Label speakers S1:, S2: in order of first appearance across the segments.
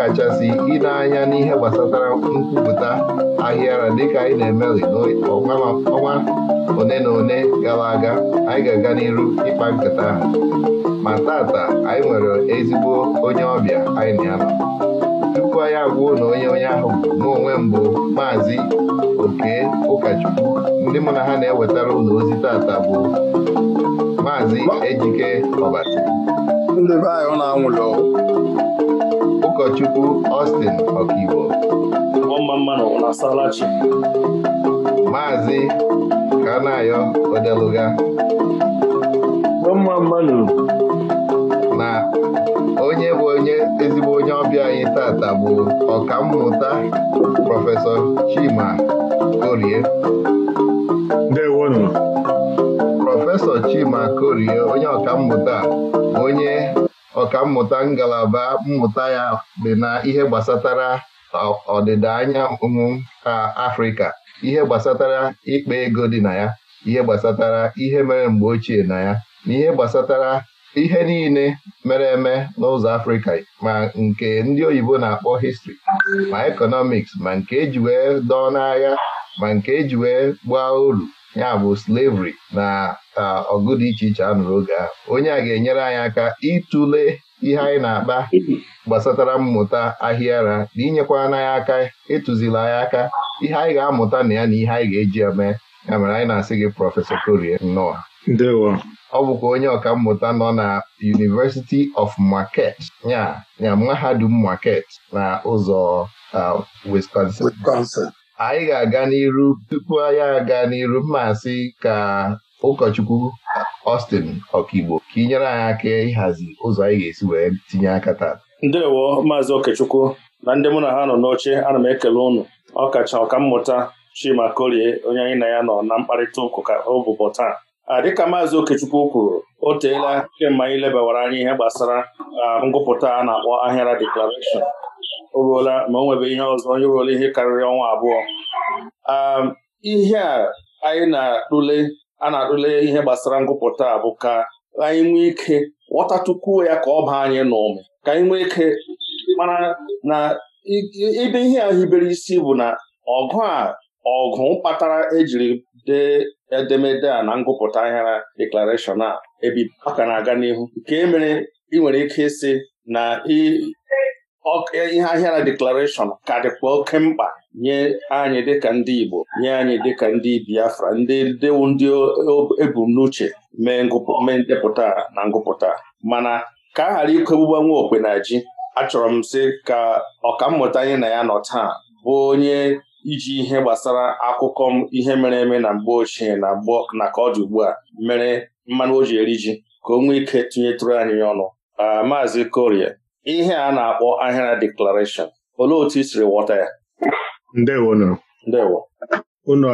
S1: ọkachasị ile anya n'ihe gbasatara nkwupụta ahịara dịka anyị na-emeli n'ọnwa one na one gara aga anyị ga-aga n'iru ịkpa nkata ahụ ma tata anyị nwere ezigbo onye ọbịa anyị na ya tupu anyị agwụo na onye onye ahụ n'onwe mbụ maazị oke ụkọchukwu ndị mụ na ha na-ewetara ụlọ ozi tata bụ maazị ejike ọbasi ndị be anyị ụkọchukwu Austin Ọkaiwo maazị Kanayo Odeluga na onye bụ onye ezigbo onye ọbịa anyị tata bụ ọkammụta prọfesọ Chima Korie prọfesọ Chima Korie onye ọkammụta onye mmụta ngalaba mmụta ya dị na ihe gbasatara ọdịda anyanwụ ka Afrịka ihe gbasatara ịkpa ego dị na ya ihe gbasatara ihe mere mgbe ochie na ya na ihe gbasatara ihe niile mere eme n'ụzọ Afrịka ma nke ndị oyibo na-akpọ histri ma ekọnọmiks ma nke eji wee dọọ n'agha ma nke eji wee gbaa uru ya bụ slavery na ọgụ dị iche iche a nụrụ oge a onye a ga-enyere anyị aka ịtụle ihe anyị na-akpa gbasatara mmụta ahịara na inyekwa anyị aka ịtụzila anyị aka ihe anyị ga-amụta na ya na ihe anyị ga-eji eme mee ya mere anyị na-asị gị prọfesọ Korie nnọọ ọ bụkwa onye ọka mmụta nọ na University of Market ya ya mahadum Market na ụzọ Wisconsin anyị ga-aga n'iru tupu anyị aga n'iru mmasị ka ụkọchukwu Austin Okigbo ka ị nyere anyị aka ịhazi ụzọ anyị ga-esi wee tinye aka taa ndewo maazị okechukwu na ndị mụ na ha
S2: nọ n'oche ana m ekele ụnụ ọkacha ọkammụta Chima onye anyị na ya nọ na mkparịta ọ ụbụbọ taa Ah, dịka maazị Okechukwu kwuru o teela kemgbe anyị lebawara anya ihe gbasara ah, ngụpụta a na-akpọ ahịara deklarashọn o ruola ma o nwebe ihe ọzọ onye ruola ihe karịrị ọnwa abụọ ah, ihe a anyị na-atụle a na-atụle ihe gbasara ngụpụta a bụ ka anyị nwee ike ghọtatukwuo ya ka ọ baa anyị n'ume. ka anyị nwee ike mara na ibe ihe ahụ hibere isi bụ na ọgụ a ọgụ kpatara ejiri dee edemede a na ngụpụta ahịara deklarashọn a ebi ka na-aga n'ihu nke e mere ị nwere ike ịsị na ihe ahịa na deklarashọn ka dịkwa oke mkpa nye anyị dịka ndị Igbo nye anyị dịka ndị Biafra ndị dewu ndị ebumnuche mee ndepụta na ngụpụta mana ka a ghara ikogbuba nwa okpe ji achọrọ m sị ka ọkammụta anyị na ya nọ taa bụ onye iji ihe gbasara akụkọ ihe mere eme na mgbe ochie na mgbe na ka ọ dị ugbu a mere mmanụ o ji eri ji ka o nwee ike tinyetụrụ anyị ọnụ maazị korie ihe a na-akpọ ahịara deklarashọn olee otu i siri ghọta ya ndewo ndewo
S3: unu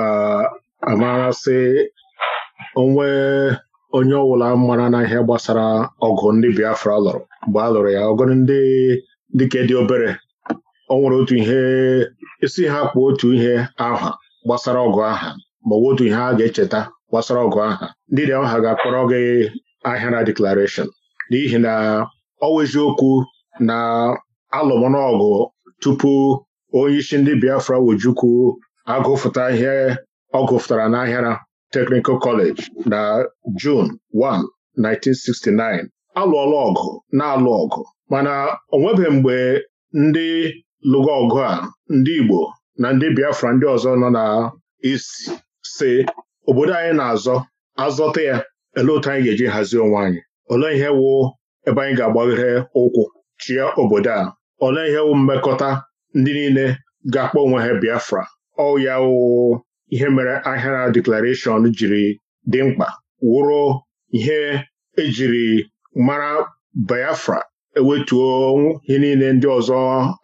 S3: amarasị onwe onye ọbụla mara na ihe gbasara ọgụ ndị Biafra lụrụ mgbe a lụrụ ya ọgụ ndị dịka dị obere o nwere otu ihe isi e ha kpụ otu ihe aha gbasara ọgụ aha ma ọ bụ otu ihe a ga-echeta gbasara ọgụ aha ndị dị ọha ga-akpọrọ gị ahịara deklarashọn n'ihi na ọ okwu na alụmọnọgụ tupu onye isi ndị Biafra Wojukwu agụfụta ihe ọ gụfụtara n'ahịara Technical Kọleji na jun 1 1969 alụọla ọgụ na-alụ ọgụ mana onwebe nwebeghị mgbe ndị lụga ọgụ a ndị Igbo na ndị Biafra ndị ọzọ nọ na isi si obodo anyị na-azọ azọta ya ele otu anyị ga-eji hazie onwe anyị olee ihe wụ ebe anyị ga-agbaghere ụkwụ chie obodo a ole ihe wụ mmekọta ndị niile ga-akpọ onwe ha Biafra ọya ya ihe mere ahịara deklarashọn jiri dị mkpa wụrụ ihe ejiri mara Biafra ewetuo ihe niile ndị ọzọ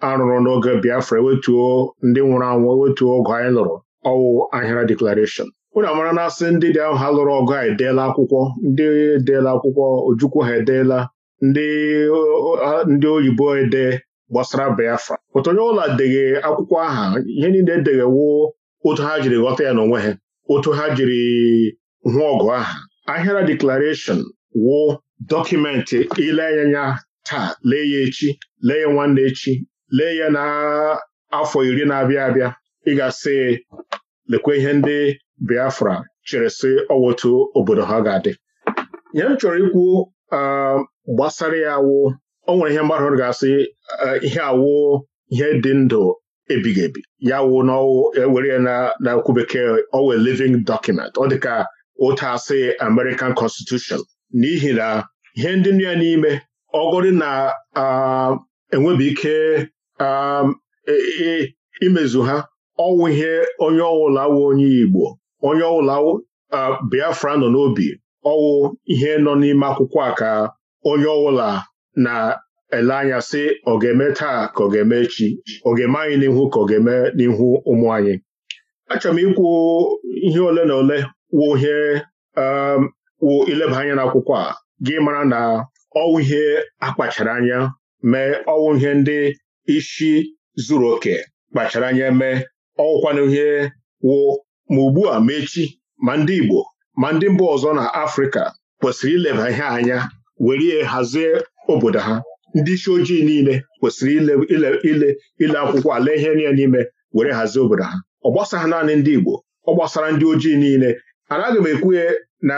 S3: arụrụ n'oge Biafra ewetuo ndị nwụrụ anwụ ewetuo ogụ anyị lụrụ ọwụ ahịra deklarashọn unu amara na asị ndị dị ahụ ha lụrụ ọgụ a edeela akwụkwọ ndị edeela akwụkwọ ojukwu ha edeela ndị oyibo ede gbasara Biafra pụta onye ụlọ deghị akwụkwọ aha ihe niile edeghewo otu ha jiri ghọta ya n'onwe ha otu ha jiri hụ ọgụ aha ahịara deklarashọn wụ dọkụmentị ile anya taa lee ya echi lee ya nwanne echi lee ya n'afọ iri na-abịa abịa ịgasị ga lekwa ihe ndị Biafra chere sị ọwotu obodo ha ga-adị Ihe m chọrọ ikwu um, gbasara ya awụ o nwere ihe mmadụ ga-asị eh, ihe awụ ihe dị ndụ ebighị ebi ya wụ na ewere ya na okwu bekee owe living document ọ dịka ụta asị American Constitution n'ihi na ihe ndị nụ ya n'ime ọgọdị na enwebi ike e, e, imezu ha ọwụ ihe onye ọwụla wụ onye Igbo onye ọwụla Biafra nọ n'obi ọwụ ihe nọ n'ime akwụkwọ a ka onye ọwụla na-ele anya sị ọ ga-eme taa ka ọ ga-eme echi ọ ga-eme anyị n'ihu ka ọ ga-eme n'ihu ụmụ anyị achọrọ m ikwu ihe ole na ole wụ ihe wụ ileba anya n'akwụkwọ a gị mara na ọwụ ihe akpachara anya mee ọwụ ihe ndị isi zuru oke kpachara anya mee ọwụkwanụ ihe wụ ma ugbu a ma ma ndị Igbo ma ndị mba ọzọ na Afrịka kwesịrị ileba ihe anya were hazie obodo ha ndị isi ojii niile kwesịrị ile ile akwụkwọ ala ihe niile n'ime were hazie obodo ha ọ gbasaghị naanị ndị Igbo ọ ndị ojii niile anaghị m na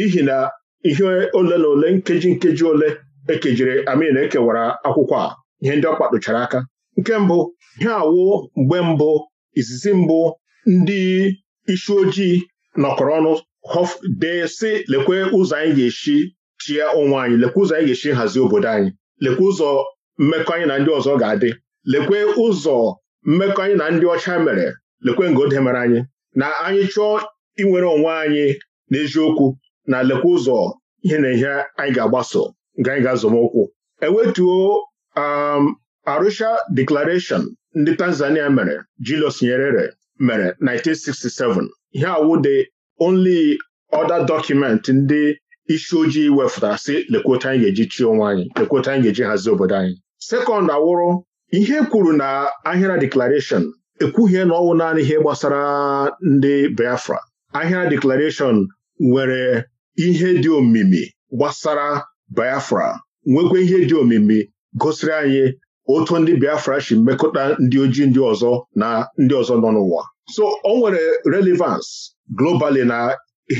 S3: ihi na ihe ole na ole nkeji nkeji ole ekejiri amin ekewara akwụkwọ a ihe ndị ọ kpadochara aka nke mbụ ihe awụ mgbe mbụ izizi mbụ ndị isi ojii nọkọrọ ọnụ dee si lekwe ụzọ anyị ga-esi chie onwe anyị lekwe ụzọ anyị ga-esi hazie obodo anyị lekwe ụzọ mmekọ anyị na ndị ọzọ ga-adị lekwe ụzọ mmekọ anyị na ndị ọcha mere lekwe ngode mere anyị na anyị chọọ inwere onwe anyị n'eziokwu na lekwa ụzọ ihe na ihe anyị ga-agbaso nke anyị ga-azọmụkwụ ewetuo um, Arusha Declaration ndị Tanzania mere Julius Nyerere mere 1967 ihe awụ the only other document ndị isi ojii wefụtara sị lekwota anyị ga-eji chi onwe anyị lekwota anyị ga-eji hazie obodo anyị sekọnd awụrụ ihe kwuru na ahịra deklarashọn ekwughie na ọnwụ naanị ihe gbasara ndị Biafra ahịra deklarashọn nwere ihe dị omimi gbasara Biafra nwekwa ihe dị omimi gosiri anyị otu ndị Biafra si mmekọta ndị ojii ndị ọzọ na ndị ọzọ nọ n'ụwa so o nwere relevance globali na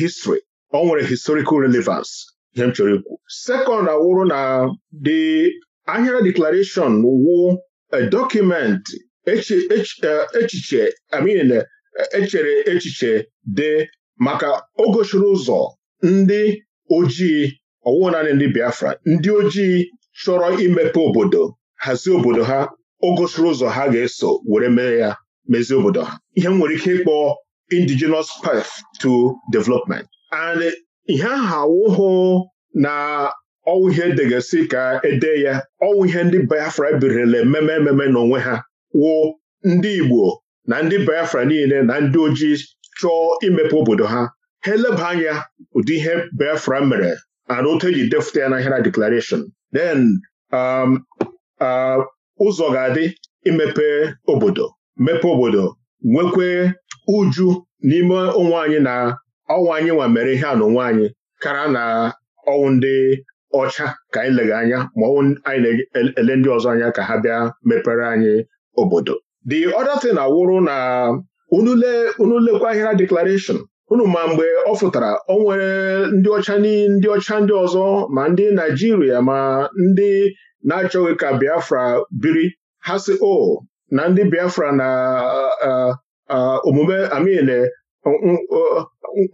S3: history o nwere historical relevans ihe m chọrọ ikwu second awụrụ na the Ahịra Declaration wụ a e, echiche echere e, e, echiche dị maka o ụzọ ndị ojii ọwụwa naanị ndị Biafra ndị ojii chọrọ imepe obodo hazie obodo ha o ụzọ ha ga-eso were mee ya mezie obodo ha ihe m nwere ike ịkpọ indigenous path to development and ihe ahụ awụhụ na ọwụ ihe edegasi ka ede ya ọwụ ihe ndị Biafra birila ememe ememe n'onwe ha wụ ndị Igbo na ndị Biafra niile na ndị ojii chọọ imepe obodo ha ha eleba anya ụdị ihe Biafra mere e na otu eji defụta ya na Hera Declaration then um, uh, ụzọ ga-adị imepe obodo mepe obodo nwekwe uju n'ime onwe anyị na ọnwa anyị nwa mere ihe a na anyị kara na ọnwụ ndị ọcha ka anyị lega anya ma ọnwụ anyị na-ele ndị ọzọ anya ka ha bịa mepere anyị obodo the other thing awụrụ na unule lekwa Hera Declaration unu ma mgbe ọ fụtara o nwere ndị ọcha ndị ọcha ndị ọzọ ma ndị Naijiria ma ndị na-achọghị ka Biafra biri ha si o na ndị Biafra na omume amin e,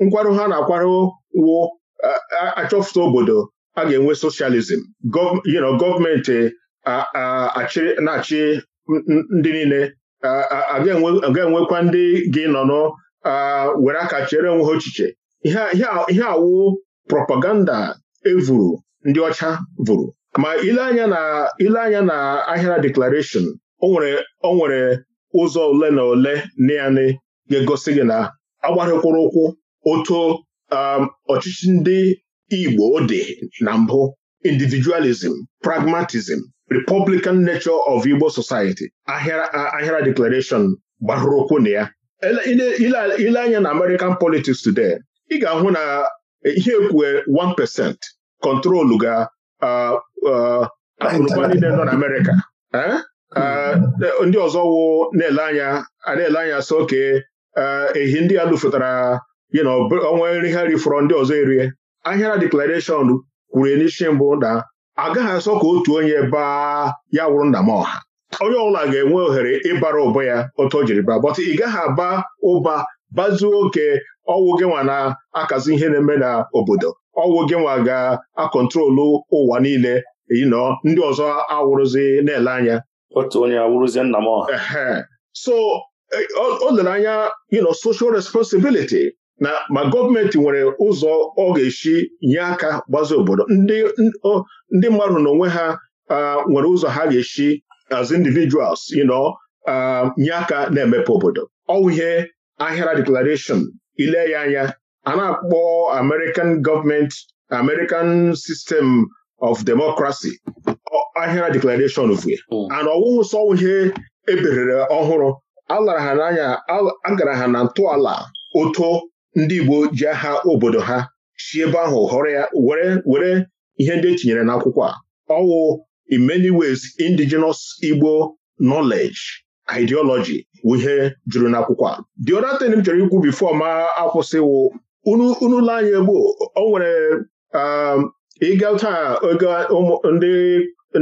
S3: nkwarụ ha na-akwarụ wo achọfụta obodo aga enwe socialism gọọmenti na-achị ndị niile aga enwekwa ndị gị nọ were aka chere onwe ochiche ihe awụ propaganda evuru ndị ọcha vụrụ ma ile anya na ile anya na ahịara declaration o nwere ụzọ ole na ole naanị ga-egosi gị na agbarịkwụrụ ụkwụ otu um, ọchịchị ndị Igbo dị na mbụ individualism pragmatism republican nature of Igbo society ahịara declaration gbarụrụ ụkwụ na ya ile anya na American politics today ị ga-ahụ na eh, ihe ekwue 1% kọntrolu ga akụrụba niile nọ na hmm. eh, ndị ọzọ wụ na-ele anya a na-ele anya so oke ehi ndị a lụfụtara yi na ọnwa nri ha rifọrọ ndị ọzọ erie ahịara deklarashọn kwuru n'isi mbụ na agaghị asọ ka otu onye baa ya wụrụ nna m onye ọbụla ga-enwe ohere ịbara ụba ya otu o jiri baa bọtụ ị gaghị aba ụba bazuo oke ọwụ gị nwa na-akazi ihe na-eme n'obodo ọwụ gị nwa ga-akọntrolu ụwa niile yinọ ndị ọzọ awụrụzi na-ele anya otu onye awụrụzi nna m so e, o lere anya yinọ social responsibility na ma gọọmenti nwere ụzọ ọ ga-esi nye aka gbazi obodo ndị mmadụ n'onwe ha nwere ụzọ ha ga-esi as individuals you know um, nye aka na-emepe obodo ọwụ ihe ahịara declaration ile ya anya a na-akpọ American government American system of democracy ahịara declaration vue hmm. and ọwụwụ sọ ihe eberere ọhụrụ alara ha n'anya agara ha na ntọala oto ndị Igbo ji aha obodo ha si ebe ahụ họrọ ya were were ihe ndị etinyere n'akwụkwọ a ọwụ in many ways indigenous Igbo knowledge ideology bụ ihe juru n'akwụkwọ a the other thing m chọrọ ikwu before ma akwụsịwụ unu la anya gboo o nwere um, ịga taa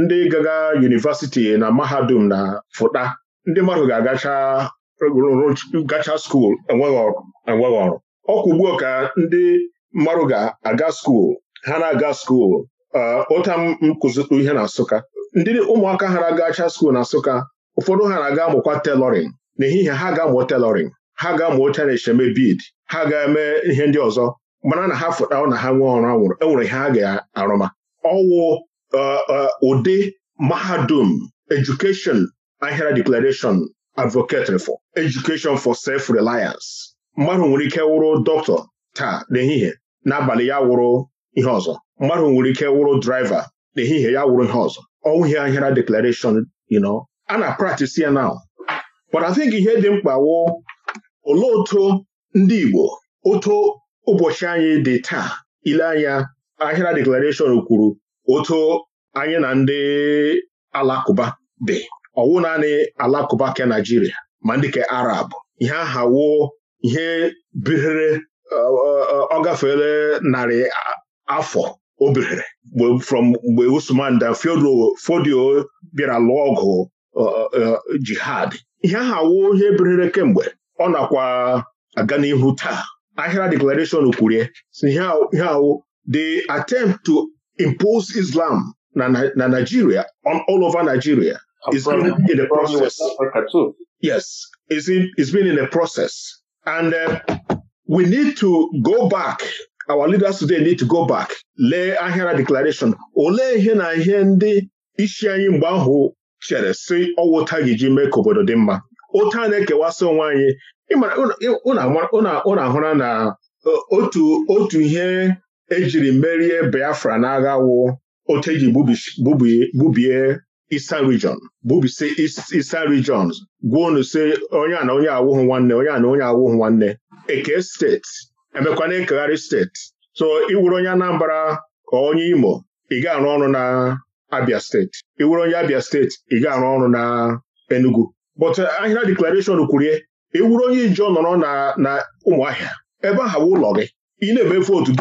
S3: ndị gaga yunivesiti na mahadum na fụta ndị mmadụ ga-agacha gacha skuul enweghị ọrụ ka ndị mmadụ ga-aga skuul ha na-aga skuul ụta ah, m ihe na Nsụka ndị ụmụaka ha na-agacha skuul na Nsụka ụfọdụ ha na-aga amụkwa telọrin n'ehihie ha ga-amụ telorin ha ga-amụ chana echeme bid ha ga-eme ihe ndị ọzọ mana na ha na ha nwee ọrụ anwụrụ enwere ihe ha e ga-arụma ọwụ ah, ah, ụdị mahadum edukeshọn ahịara deklarashọn advocate for education sef self-reliance mmadụ nwere ike wụrụ dọkịta taa n'ehihie n'abalị ya wụrụ ihe ọzọ mmadụ nwere ike wụrụ draiva n'ehihie ya wụrụ ihe ọzọ ọnwụghị ahịara deklarashọn you know a na practice ya now but I think ihe dị mkpa wụ olee otu ndị Igbo otu ụbọchị anyị dị taa ile anya ahịara deklarashọn kwuru otu anyị na ndị alakụba dị ọwụ naanị alakụba ke Naijiria ma ndị ke Arab ihe aha wụ ihe birere ọ gafeela narị afọ Obere, from mgbe Usman dan Fodio bịara lụọ ọgụ uh, uh, uh, jihad ihe ahụ awụ ihe berere kemgbe ọ nakwa aga n'ihu taa ahịra declaration kwurie ihe awụ the attempt to impose Islam na Nigeria on all over Nigeria is in the process yes it's been in a process and uh, we need to go back our leaders today need to go back lee ahịara declaration olee ihe na ihe ndị isi anyị mgbe ahụ chere si ọwụta gị ji mee ka obodo dị mma otu a na-ekewasị onwe anyị ụna ahụra na e, otu ihe ejiri merie Biafra n'agha wụ otu eji gbubie Eastern Region Regions gwuo si onye a na onye awụghị nwanne onye a na onye awụhụ nwanne Eke steeti emekwana ekegharị steeti so iwuru onye Anambra ka onye Imo ị ga-arụ ọrụ na Abia steeti iwuru onye Abia steeti ị ga-arụ ọrụ na Enugu but eh, ahịra deklarashọn kwurie iwuru onye Ijo nọrọ na Ụmụahịa ebe aha bụ ụlọ gị ị na-eme vootu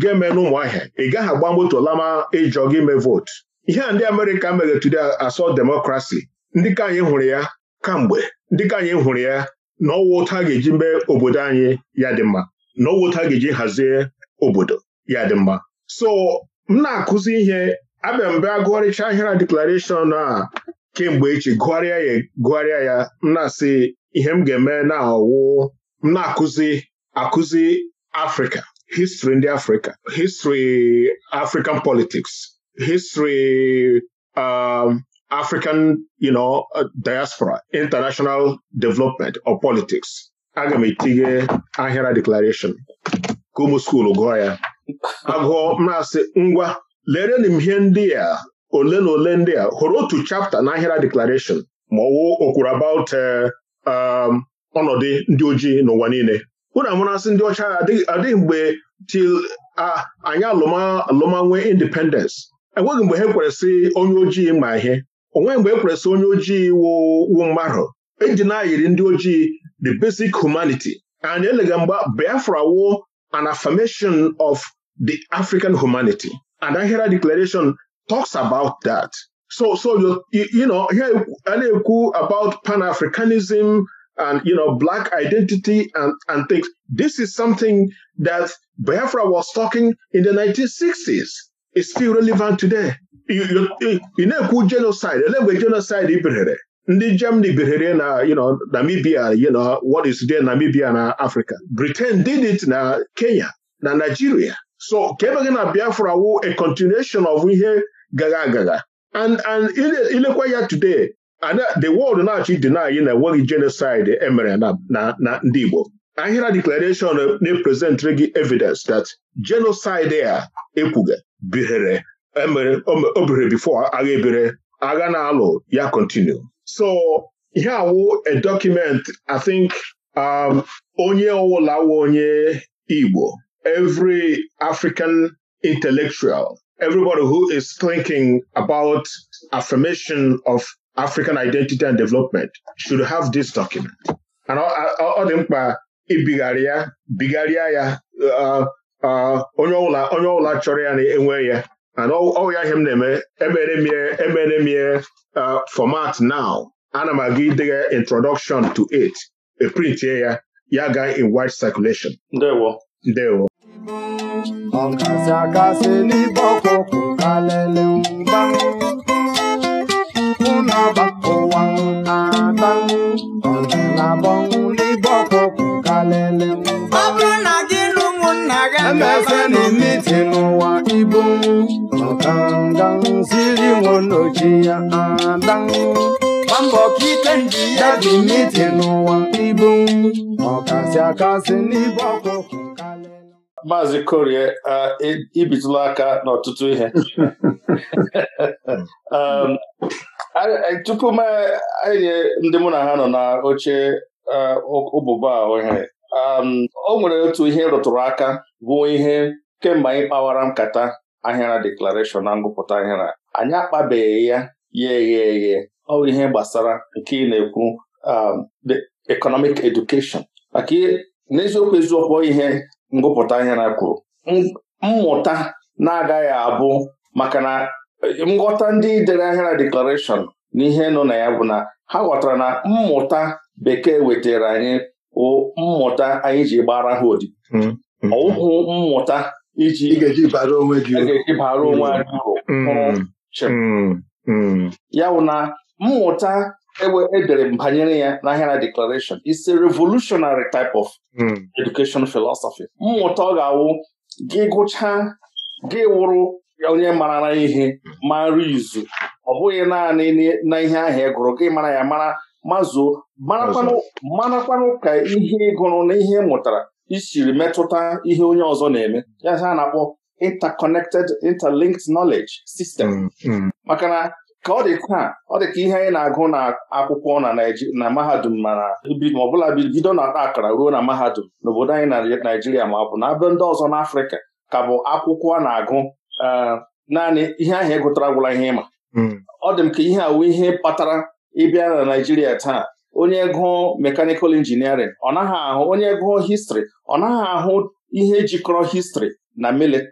S3: ga-eme n'ụmụahịa ị gaghị agba moto lama ịjọ gị mee vootu ihe a ndị Amerịka mere tude asọ demokrasi ndị ka anyị hụrụ ya kamgbe ndị ka anyị hụrụ ya na ọwụ ụta a ga-eji mee obodo anyị ya dị mma n'owota ọwụta ga-eji hazie obodo ya dị mma so m na-akụzi ihe abịa mbe a gụgharịcha ahịra deklarashọn a kemgbe echi gụgharịa ya gụgharịa ya m na-asị ihe m ga-eme na ọwụ m na-akụzi akụzi Afrịka histri ndị Afrịka histri African politics histri um, African you know, uh, diaspora international development or politics aga m etinye ahịara deklarashọn ka ụmụ skuulu gụọ ya agụọ na-asị, ngwa lerenu m ihe ndị a ole na ole ndị a hụrụ otu chapta na ahịara deklarashọn ma ọ wụ okwuru about eh, um, ọnọdụ ndị ojii n'ụwa niile unu amụrasị ndị ọcha adịghị mgbe til anyị alụmanwe independence enweghị mgbe ha kweresị onye ojii ma ihe onweghị mgbe e kweresị onye ojii wụ mmadụ eji na-ayiri ndị ojii the basic humanity and eleghị mgba Biafra wụ an affirmation of the African humanity and Ahira Declaration talks about that so so you, you know here a na-ekwu about Pan-Africanism and you know black identity and, and things this is something that Biafra was talking in the 1960s is still relevant today you, you, you na-ekwu genocide ele genocide Ibirere. ndị Germany birere na you know, Namibia you know, what is today Namibia na Africa Britain did it na Kenya na Nigeria so kemgbe na Biafra wu a continuation of ihe gaga and and ilekwa ya today and the world na-achọ deny na enweghị genocide emere na na ndị Igbo ahịra declaration na-epresentere gị evidence that genocide a ekwuga bihere e o bere before agha ebere agha na-alụ ya continue so ihe wụ a document I think um, onye ọwụla wụ onye Igbo every African intellectual everybody who is thinking about affirmation of African identity and development should have this document. And ọ dị mkpa ibigharị ya bigharịa ya uh, uh, onye ọbụla onye chọrọ ya na-enwe ya ọya ihe m na-eme emere m ihe format now ana m aga idegha introduction to it eprintie ya ya ga in wide circulation ndewo ndewo
S4: ọkasị akasị n'ibe ọkụkụ kalele mgba ụnọba ụwa na-ata ọdịnabọ n'etiti n'ụwa ibu ọkangaziri nwonochi
S2: maazị korie ibitụla aka n'ọtụtụ ihe um, tupu e, anyị ndị mụ na ha nọ na oche ụbụba ohe Um, o nwere otu ihe rụtụrụ aka bụ ihe kemgbe anyị kpawara nkata ahịara deklarashọn na ngụpụta ahịara anyị akpabeghị ya ya eghe eghe ọ bụ ihe gbasara nke ị na-ekwu um, economic education maka n'eziokwu eziokwu ihe ngụpụta ahịara kwuru mmụta na-agaghị abụ maka na um, nghọta ndị dere ahịara deklarashọn na ihe nọ na ya bụ na ha ghọtara na mmụta bekee wetara anyị mmụta anyị ji gbara ha odi hmm. hmm. ọụhụ mmụta iji bara onwe gị uru hmm. ya bụ na mmụta edere e m banyere ya na Ahịara Declaration is a revolutionary type of education philosophy mmụta ọ ga-awụ gị gụchaa gị wụrụ onye marara ihe mara izu ọ bụghị naanị na ihe ahụ ị e gụrụ gị mara ya mara mazụo marakwanụ ka ihe gụrụ na ihe mụtara isiri metụta ihe onye ọzọ na-eme ya ha na-akpọ interconnected interlinked knowledge system mm, mm. maka na ka ọ dị taa ọ dị ka ihe anyị na-agụ na akwụkwọ na Naịjirịa na mahadum ma na ọbụla bido na akara ruo na mahadum n'obodo anyị na Naịjirịa ma ọ bụ na abụ ndị ọzọ Afrika ka bụ akwụkwọ a na-agụ eh, naanị ihe ahụ e gụtara gwụla ihe ịma mm. ọ dị m ka ihe a wụ ihe kpatara ị bịa na Naịjirịa taa onye gụọ mechanical engineering ọ naghị ahụ onye gụọ histrị ọ naghị ahụ ihe jikọrọ histrị na hmm,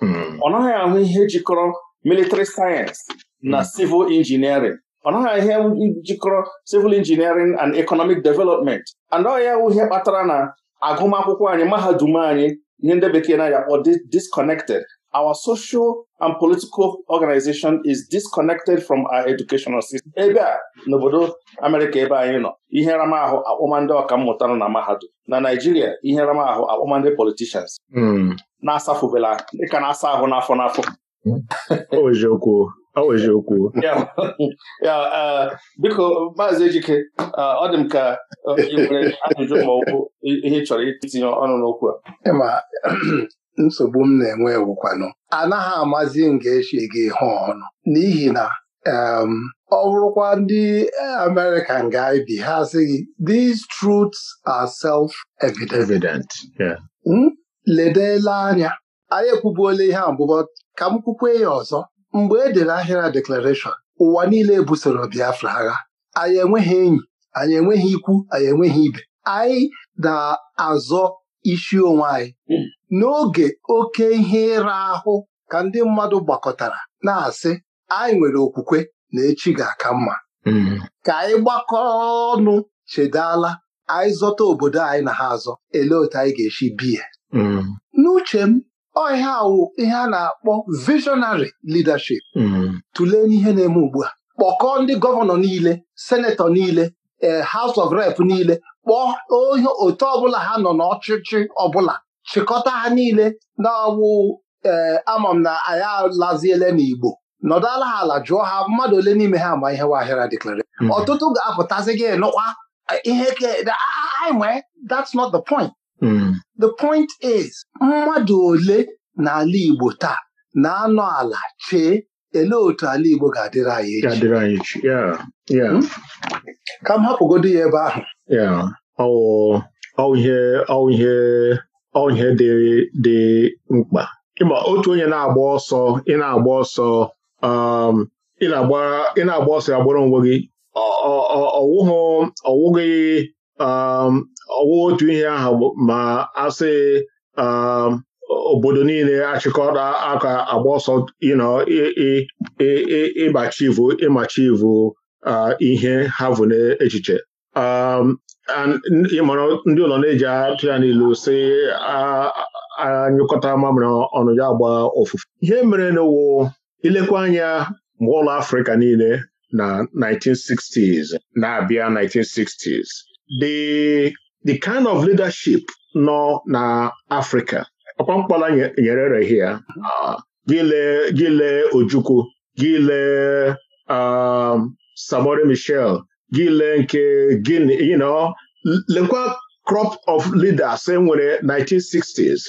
S2: hmm. ọ naghị ahụ ihe jikọrọ military science na hmm. civil engineering ọ naghị ihe jikọrọ civil engineering and economic development and ọ ya ihe kpatara na agụmakwụkwọ anyị mahadum anyị ihe ndị bekee na-akpọ disconnected our social and political organization is disconnected from our educational system. ebe a n'obodo amerika ebe anyị nọ ihe ramahụ akpọma ndị ọkammụta nọ na mahadum na Naijiria ihe ramahụ akpọma ndị politicians hmm. na-asafubela dịka na-asa ahụ n'afọ n'afọ okwu e, biko maazị Ejike e, ọ dị m ka e, ajụjụ ma bụ ihe chọrọ itinye ọnụ n'okwu
S5: a nsogbu m na-enwe ewukwanụ anaghị amazi m ga-echi
S2: gị hụ ọnụ.
S5: n'ihi na ọ bụrụkwa ndị e, American ga-ebi ha sịghị these truths are self-evident hmm? ledela anya anyị ekwubuola ihe abụbọ ka m kwukwe ya ọzọ mgbe e dere ahịra deklarashọn ụwa niile busoro Biafra agha anyị enweghị enyi anyị enweghị ikwu anyị enweghị ibe anyị na-azọ isi onwe anyị hmm. n'oge oke ihe ịra ahụ ka ndị mmadụ gbakọtara na-asị anyị nwere okwukwe na echi ga-aka mma hmm. ka anyị gbakọọ ọnụ chedala anyị zọta obodo anyị na ha azọ ele otu anyị ga-esi biya hmm. n'uche m ọhịa awụ ihe a na-akpọ visionary leadership hmm. tụlee n'ihe na-eme ugbu a kpọkọọ ndị gọvanọ niile senetọ niile ee eh, House of Rep niile kpọọ otu ọbụla ha nọ n'ọchịchị ọbụla chịkọta ha niile na-awụ ee ama m na anyị alaziele n'Igbo nọdụ ala ha ala jụọ ha mmadụ ole n'ime ha ma ihe wahịara deklara hmm. ọtụtụ ga-apụtazi gị nụkwa ihe that's not the point hmm. the point is mmadụ ole n'ala Igbo taa na-anọ ala chee ele otu ala Igbo ga-adịrị anyị echi hmm? ka m hapụgodo ya ebe ahụ
S3: ọwụ ihe ọ ihe dị mkpa ịma otu onye na-agba ọsọ ị na-agba ọsọ um, ị na-agba ọsọ agbụrụ onwe gị ọwụghị um, ọwụ otu ihe ahụ ma asị um, obodo niile achịkọta aka agba ọsọ ịmachi ịmachivu uh, ihe ha bụ n'echiche ndị ụlọ na-eji atụ ya n'ilu si anyụkọta mamịrị ọnụ ya gba ofufe." ihe mere n'ụwo ilekwa anya mgbe ụlọ Afrịka niile na 1960s na-abịa 1960s the the kind of leadership nọ na Afrịka ọkwa nyere rehi ya gile Ojukwu gile um, Samori Michel gị lee nke gịnị you know lekwa crop of leaders enwere 1960s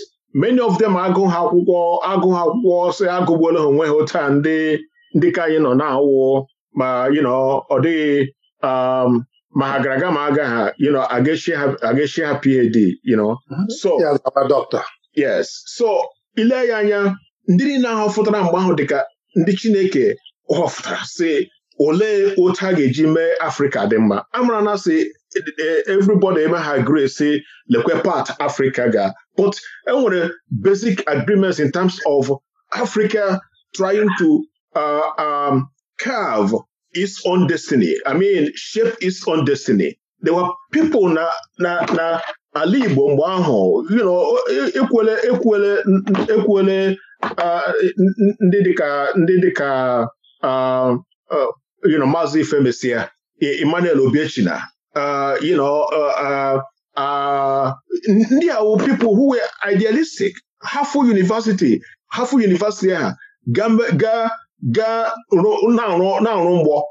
S3: many of them agụ ha akwụkwọ agụ ha akwụkwọ si agụgbuola ha onwe ha taa ndị ndị ka anyị nọ na-awụ ma you know ọ dịghị um, ma ha gara aga ma aga ha you know ha PAD you know mhm. so yes so ile ya anya ndị niile na fụtara mgbe ahụ dịka ndị Chineke họfụtara si olee otu a ga-eji mee Afrịka dị mma amara na sị e, e, everybody eme ha gree si lekwe part Afrika ga but enwere basic agreements in terms of Africa trying to uh, um, carve its own destiny I mean shape its own destiny there were people na na na ala Igbo mgbe ahụ you know e, ekwele ekwele ekwele uh, ndị dịka ndị dịka uh, uh, you know maazị ifemesia uh, e-, Emmanuel Obiechina uh, you know uh, uh, ndị a people who were idealistic hafu university hafu university ha ga na-arụ mgbọ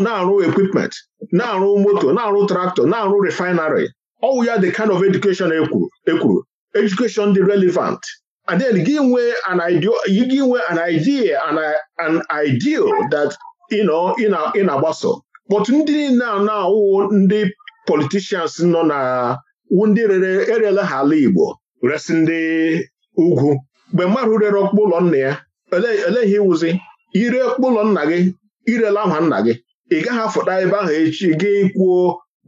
S3: na-arụ equipment na-arụ moto na-arụ traktọ na-arụ refinery ọwụ ya the kind of education ekwuru e education dị relevant and then gị nwee an idea an ideal that ị na-agbaso kpọtụ ndị niile a na-awụ ndị politishans nọ na ndị rere erela ha ala Igbo resi ndị ugwu mgbe mmadụ rere ọkpụkpụ ụlọ nna ya ele ihe ịwụzi ire ọkpụkpụ ụlọ nna gị irele aha nna gị ị gaghị afụta ebe ahụ echi gị kwuo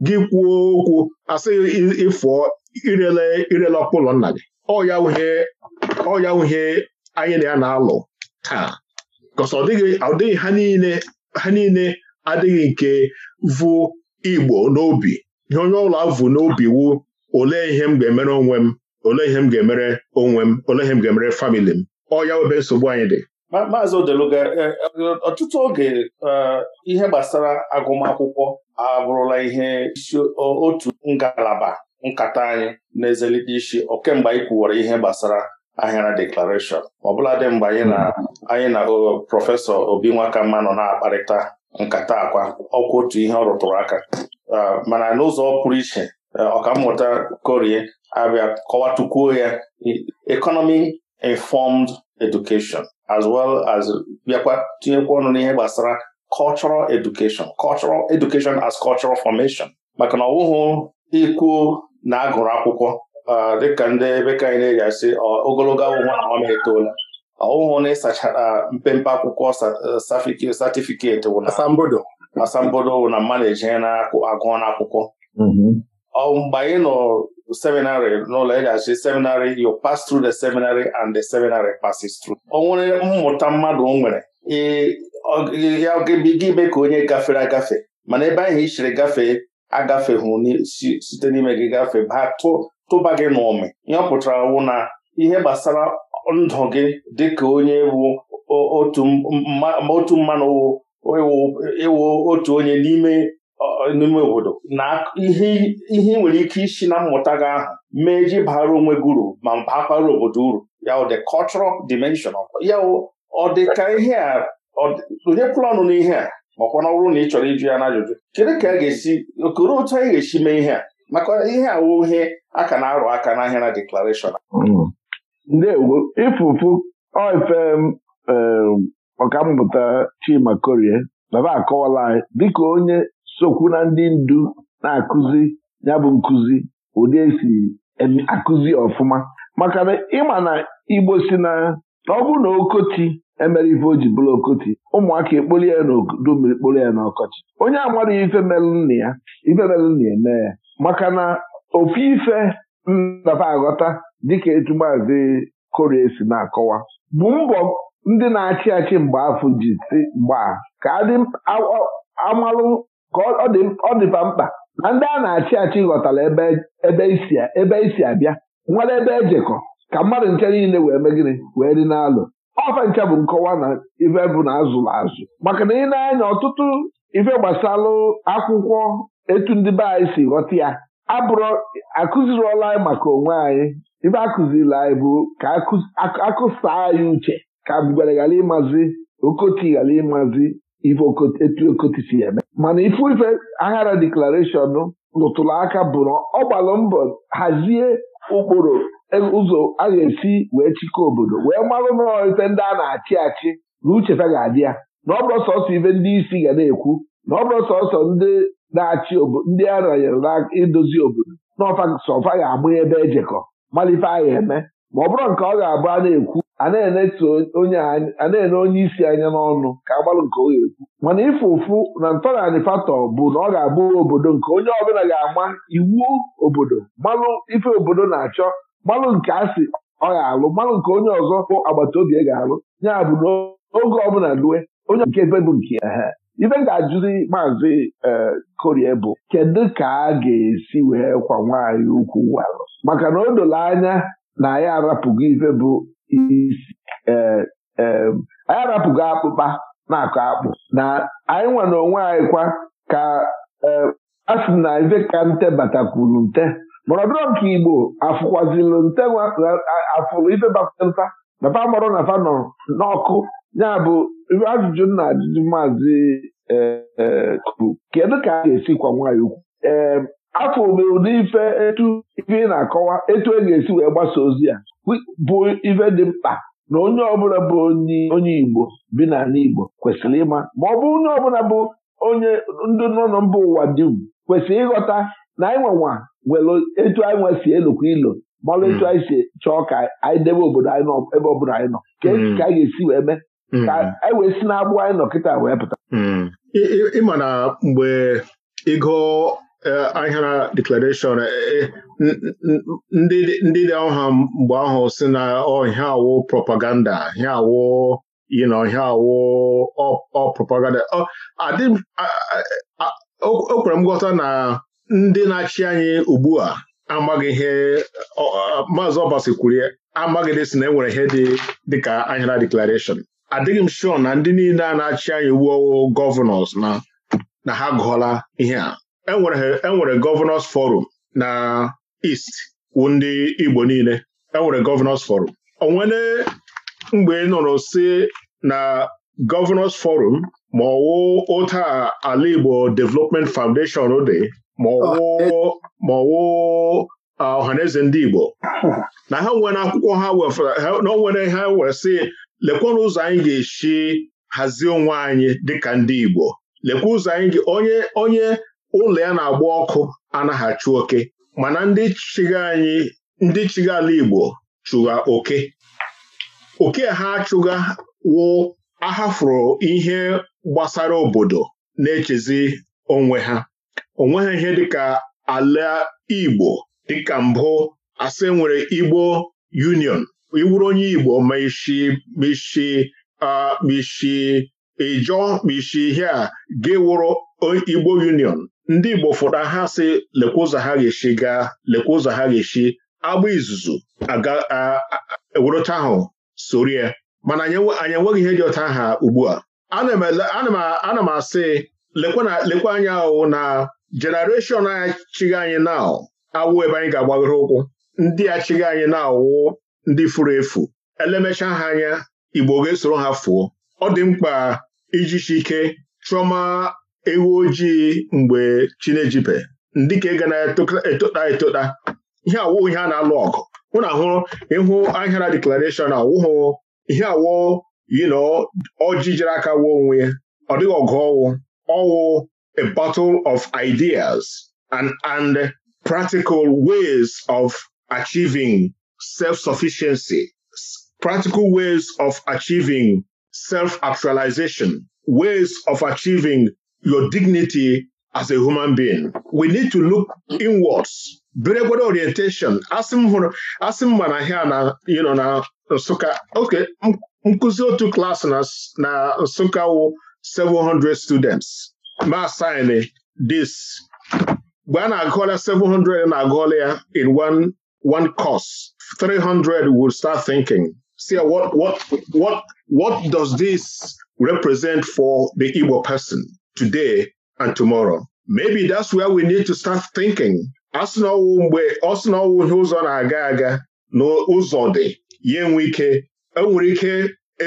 S3: gị kwuo okwu asị ịfụọ irele irele ọkpụkpụ ụlọ nna gị ọ ya anyị na ya na-alụ taa kọsọ ọ dịghị ha niile ha niile adịghị nke vụ Igbo n'obi ihe onye ọla vụ n'obi wu olee ihe m ga-emere onwe m olee ihe m ga-emere onwe m olee ihe m ga-emere famili m ọ ya ebe nsogbu anyị dị
S2: maazị Odeluga e, ọtụtụ oge e, ihe gbasara agụmakwụkwọ abụrụla ihe isi otu ngalaba nkata anyị na-ezelite isi ọ kemgbe anyị kwuwara ihe gbasara ahịara deklarashọn ọbụladị mgbe anyị na hmm. anyị na prọfesọ obi nwakamma nọ na-akparịta nkata akwa ọkwa otu ihe ọ rụtụrụ aka mana n'ụzọ pụrụ iche ọkammụta korie abịa kọwatukwuo ya economy informed education as well as bịakwa tinyekwa ọnụ n'ihe gbasara cultural education cultural education as cultural formation maka na ọ wụghụ ikwuo na agụrụ akwụkwọ dịka ndị ebe ka anyị na-eji asị ogologo awụhụ na ọm etoola ọwụhụ na ịsachara mpempe akwụkwọ satifiketi asambodo na mmadụ na agụọ na mgbe anyị nọ seminarị n'ụlọ eji asị seminarị you pass through the seminary and the seminary passes through o nwere mmụta mmadụ nwere ya gịbiga ime ka onye gafere agafe mana ebe ahụ i chere gafee agafehụ site n'ime gị gafe baa tụba gị n'ụmị nyọpụtara wụ na ihe gbasara ndụ gị ka onye bụ otu mmanụ ịwụ otu onye n'ime n'ime obodo na ihe ị nwere ike isi na mmụta gị ahụ mee ji bara onwe gị uru ma bakwara obodo uru ya the cultural dimension ya ọ ihe a onye kwụrụ ọnụ n'ihe a makwa na ọ na ị chọrọ iju ya n'ajụjụ kedu ka a ga-esi okoro otu anyị ga-esi mee ihe a maka ihe awụ ihe a ka na-arụ aka n'ahịa na deklarashọn
S6: mm. ndewo ifufu oife mm, ọkammụta Chima Korie baba akọwala anyị dịka onye sokwu na ndị ndu na-akụzi ya bụ nkụzi ụdị esi akụzi ọfụma maka na ịma na Igbo si na ọ bụ na okoti emere ife o ji bụrụ okoti ụmụaka ekpoli ya n'odo odomiri kporo ya n'ọkọchị onye amadụghị ife melụ nna ya ife melụ nna ya ya maka na ofu ife ndaba aghọta dịka etu maazị korie si na-akọwa bụ mbọ ndị na-achị achị mgbe afọ ji si mgbaa ka amalụ ka ọ dịba mkpa na ndị a na-achị achị ghọtara ebe isi abịa nwere ebe ejekọ ka mmadụ nke niile wee megịrị wee dị n'alụ ọfa nke bụ nkọwa na ife bụ na azụrụ azụ maka na ị na-anya ọtụtụ ife gbasalụ akwụkwọ etu ndị be anyị si ghọta ya abụrụ akụziriola anyị maka onwe anyị ife akụziri anyị bụ ka akụsa anyị uche ka ngwere ghara ịmazi okoti ghara ịmazi ife etu okoti si eme mana ifu ife aghara deklarashọn lụtụrụ aka bụ na ọ gbalụ mbọ hazie ụkpụrụ ụzọ a ga-esi wee chịkọọ obodo wee marụ n'ite ndị a na-achị achị na uchefa ga-adị ya na ọ bụrụ sọsọ ibe ndị isi ga na-ekwu na ọ bụrụ sọsọ ndị na-achị ndị a ranyere na-edozi obodo na ọfasọfa ga-agba ebe ejekọ malife a eme ma ọ bụrụ nke ọ ga-abụ a na-ekwu a na-ene onye isi anya n'ọnụ ka agbalụ nke ọ ga-ekwu mana ịfụ ụfụ na ntọnanị fatọ bụ na ọ ga-abụ obodo nke onye ọbụla ga-ama iwu obodo malụ ife obodo na-achọ gbalụ nke asị ọ ga-alụ gbalụ nke onye ọzọ bụ agbata obi ga-alụ ya bụ oge ọbụla lue onye nke ebe bụ nke ya ibe ga-ajụzi maazị eh, korie bụ kedu ka a ga-esi wee kwa nwaanyị ukwu walụ maka na o doro anya na anyị arapụgo ife bụ isi eh, eh, anyị arapụgo akpụkpa na-akọ akpụ na anyị nwere onwe anyị kwa ka asị na ife ka nte batakwuru nte mọrọdụrọ nke igbo afụkwazilụ ntenwa afụrụ ife bapụta papa mọrọ na fa nọ n'ọkụ ya bụ ajụjụ na ajụjụ maazị e, e, kuru kedu ka a ga-esi kwa nwaanyị ukwu ee afọ obe ụdị ife etu ife ị na-akọwa etu e ga-esi wee gbasa ozi ya bụ ife dị mkpa na onye ọbụla bụ onye igbo bi n'ala igbo kwesịrị ịma ma ọ bụ onye ọbụla bụ onye ndị nọ na mba ụwa dum kwesịrị ịghọta na anyị nwenwa were etu anyị nwe si elukwa ilo malụ etu anyị si chọọ ka anyị debe obodo anyị nọ ebe ọ bụla anyị nọ ka e hmm. ka anyị ga-esi wee mee hmm. ka anyị wee si n'agbụ anyị nọ kịta wee pụta hmm. ịma na
S3: mgbe ịgụ e, ahịara deklarashọn e, ndị dị ọha mgbe ahụ si na ọhịa oh, awụ propaganda hịa awụ yi na ọhịa awụ ọ propaganda ọ kwere m nghọta na ndị na-achị anyị ugbu a amaghị ihe maazị ọbasi kwuru amaghịdị e si na enwere ihe dị dịka anyara deklarashọn adịghị m shọ na ndị niile a na-achị anyị wuowo gọvanọs na ha gụọla ihe a enwere e gọvanọs forum na East wụ ndị Igbo niile enwere gọvanọs forum onwere mgbe nọrọ si na gọvanọs forum ma ọwụ ụta ala Igbo Development Foundation dị maọwụ ah, eh. ah, ọhaneze ndị Igbo na ha nwere akwụkwọ ha na ha wee sị lekwanụ ụzọ anyị ga-esi hazie onwe anyị dịka ndị Igbo lekwa ụzọ anyị onye onye ụlọ ya na-agba ọkụ anaghachi oke mana ndị chịga anyị ndị chịga ala Igbo chụga oke oke ha achụga wụ ahafụrụ ihe gbasara obodo na-echezi onwe ha onweghị nweghị ihe dịka ala Igbo dịka mbụ asị nwere Igbo Union iwuru onye Igbo ma isi kpishi kpishi ịjọ ihe a gị Igbo Union ndị Igbo fụta ha sị lekwa ụzọ ha ga-esi gaa lekwa ụzọ ha ga-esi agba izuzu ewerụta ahụ sorie mana anyị enweghị ihe dị ọta ha ugbu a ana m asị lekwa anya ahụ na jenereshọn a chigha anyị na awụ ebe anyị ga-agbagoro ụkwụ ndị a anyị na-awụ ndị furu efu elemecha ha anya Igbo ga-esoro ha fuo ọ dị mkpa ijichi ike chọma ewu ojii mgbe chinejibe ndị ka ga na-etota etota ihe awụ ihe a na-alụ ọgụ mụ na ahụ ịhụ ahịara deklarashọn awụhụ ihe awụ yinọ na jere aka wuo onwe ya ọ dịghị ọgụ ọwụ ọwụ a battle of ideas and, and practical ways of achieving self-sufficiency, practical ways of achieving self-actualization, ways of achieving your dignity as a human being. We need to look inwards. Biregwado orientation. Asị m hụrụ asị ahịa na you know, na Nsukka okay nkụzi otu klaasị na Nsukka wụ 700 students masin this mgbe a na-agụọla 700 na-agụọla ya in one one course 300 will start thinking see what, what, what, what does this represent for the Igbo person today and tomorrow maybe that's where we need to start thinking asị mgbe ọsị na ihe ụzọ na-aga aga na ụzọ dị ya enwe ike enwere ike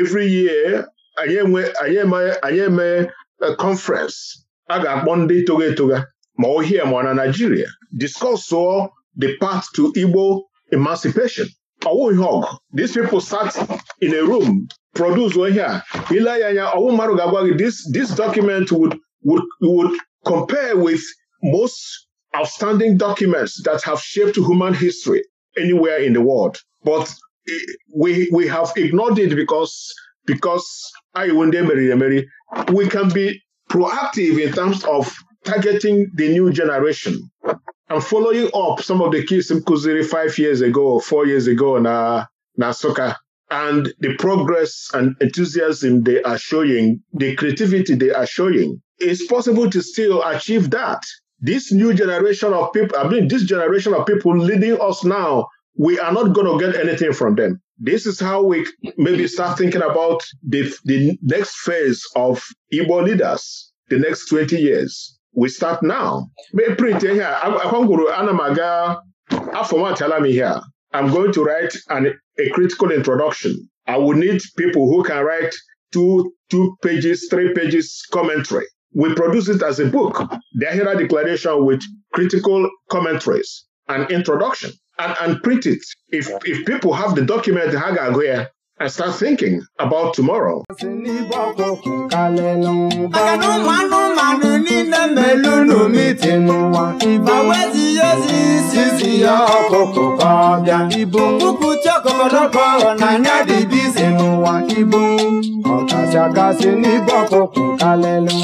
S3: every year anyị eme conference a ga-akpọ ndị itoga etoga ma ohie ma na Naijiria discussụọ the path to Igbo emancipation ọwụ ihe these people sat in a room produce ihe a ile ya anya ọwụ mmadụ ga-agwa gị this document would, would, would compare with most outstanding documents that have shaped human history anywhere in the world but eh, we, we have ignored it because because anyị iwu ndị emeriri emeri we can be proactive in terms of targeting the new generation and following up some of the kids m kụziri five years ago or four years ago na na and the progress and enthusiasm they are showing, the creativity they are showing. It's possible to still achieve that. This new generation of people, I mean, this generation of people leading us now, we are not going to get anything from them. this is how we maybe start thinking about the, next phase of Igbo leaders, the next 20 years. We start now. Print ihe akwangwuru ana m aga afọmatala m I'm going to write an, a critical introduction. I will need people who can write two, two pages, three pages commentary. We produce it as a book, the Ahira Declaration with critical commentaries and introduction. and, and print it. If if people have the document, ha ga-agụ and start thinking about tomorrow.
S4: kachakasị n'ibe ọkụkụ kalelu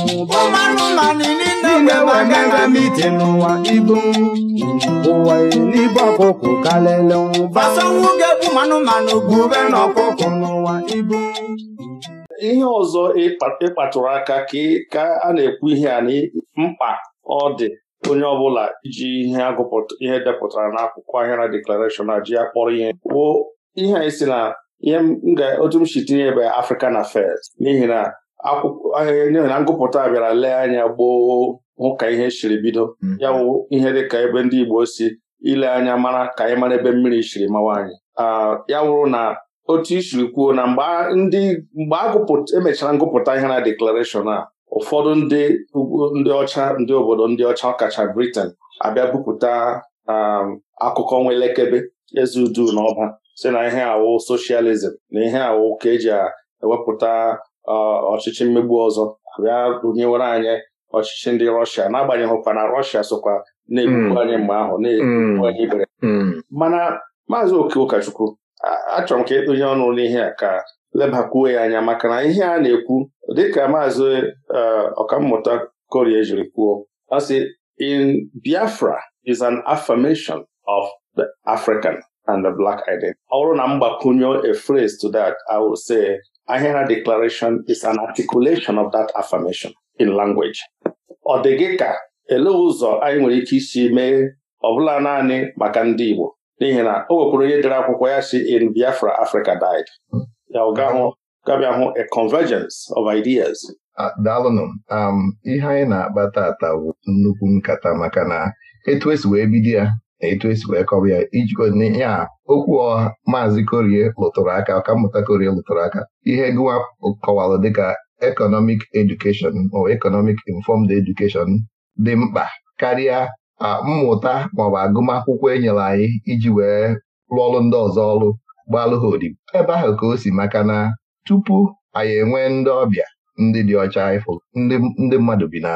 S4: n'ime nwanne na mite n'ụwa ibu ụwa n'ibe ọkụkụ kalelu bube n'ụwa ibu
S2: ihe ọzọ aka ka a na-ekwu ihe a mkpa ọ dị onye ọbụla iji ihe depụtara n'akwụkwọ ahịra deklarashọn a ji ya kpọrọ ihe kwuo ihe ihe otu m si tinye ebe African Affairs n'ihi na akwụkwọ eh, na ngụpụta bịara lee anya gboo hụ ka ihe siri bido hmm. ya wụ ihe dị ka ebe ndị Igbo si ile anya mara ka anyị mara ebe mmiri siri mawa anyị ya wụrụ na otu isiri kwuo na mgbe emechara e ngụpụta ihe na deklarashọn a ụfọdụ ndị ndị ọcha ndị obodo ndị ọcha ọkacha Britain abịa bupụta um, akụkọ nwa elekebe eze udu na ọba si na ihe awụ socialism na ihe awụ ka eji ewepụta ọchịchị mmegbu ọzọ bịa rụnyewere anyị ọchịchị ndị rọshia n'agbanyeghị ụkwa na rọshia sokwa na-egbukwu hmm. anyị mgbe ahụ na-egbukwu hmm. anyị ibere hmm. mana maazị oke ụkọchukwu achọrọ m ka ịtụnye e ọnụ n'ihe a ka lebakwuo ya anya maka na ihe a na-ekwu dịka maazị e, ọkammụta korie jiri kwuo ọ sị in Biafra is an affirmation of the African and the black identity. Ọ bụrụ na mgbakwunye a phrase to that, I would say Ahera Declaration is an articulation of that affirmation in language. Ọ dị gị ka ele ụzọ anyị nwere ike isi mee ọbụla naanị maka ndị Igbo n'ihi na o nwekwara onye dere akwụkwọ ya si in Biafra Africa died. Ya ọ gabịa hụ a convergence of ideas.
S1: Ah, daalụnụ um, ihe anyị na-akpa tata bụ nnukwu nkata maka na etu esi wee bido ya etu esi wee kọwa ya ijikọna ya okwu ọha maazị korie lụtụrụ aka ọkammụta korie lụtụrụ aka ihe gụwa kọwalụ dịka economic education ma economic informed education dị mkpa karịa mmụta maọbụ agụmakwụkwọ enyere anyị iji wee rụọ ọrụ ndị ọzọ ọrụ gbalụ ha odibo ebe ahụ ka o si maka na tupu anyị enwee ndị ọbịa ndị dị ọcha ifo ndị mmadụ bi na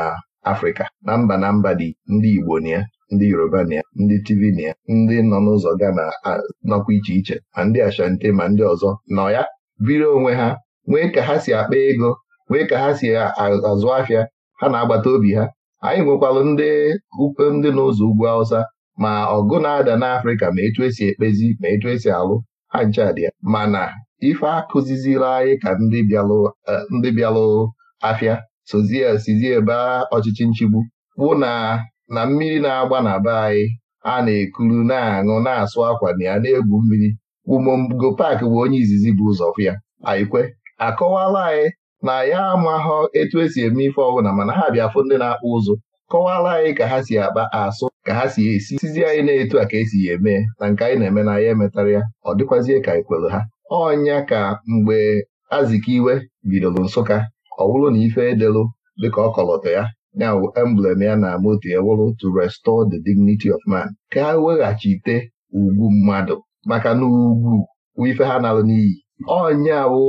S1: Afrịka na mba na mba dị ndị Igbo na ya ndị Yoruba na ya ndị Tivin ya ndị nọ n'ụzọ gana nọkwa iche iche ma ndị Ashanti ma ndị ọzọ nọ ya biri onwe ha nwee ka ha si akpa ego nwee ka ha si azụ afịa ha na-agbata obi ha anyị nwekwalụ ndị ukwe ndị n'ụzọ ugwu Awụsa ma ọgụ na-ada n'Afrịka ma etu esi ekpezi ma etu esi alụ ha ncha dị ya mana ife akụzizila anyị ka e, ndị bịalụ afịa sozie sizie ebe ọchịchị nchigbu bụ na na mmiri na-agba na be anyị a na-ekuru na-aṅụ na-asụ akwa na ya na-egwu mmiri Umongo Paak bụ onye izizi bụ ụzọ fụ ya anyịkwe akọwala anyị na ya amaghọ etu esi eme ife ọbụla mana ha bịa fụ ndị na-akpụ ụzụ kọwala anyị ka ha si akpa asụ ka ha si esi sizi anyị na-etu a ka esi ya eme na nke anyị na-eme na ya emetara ya ọ dịkwazie ka anyị ha ọnya ka mgbe Azikiwe bidoro Nsụka ọ bụrụ na ife edelu dịka ọ kọlọtọ ya ya bụ emblem ya na moto ya wụrụ to restore the dignity of man ka ha weghachite ugwu mmadụ maka na ugwu ife ha nalụ n'iyi Ọnya wụ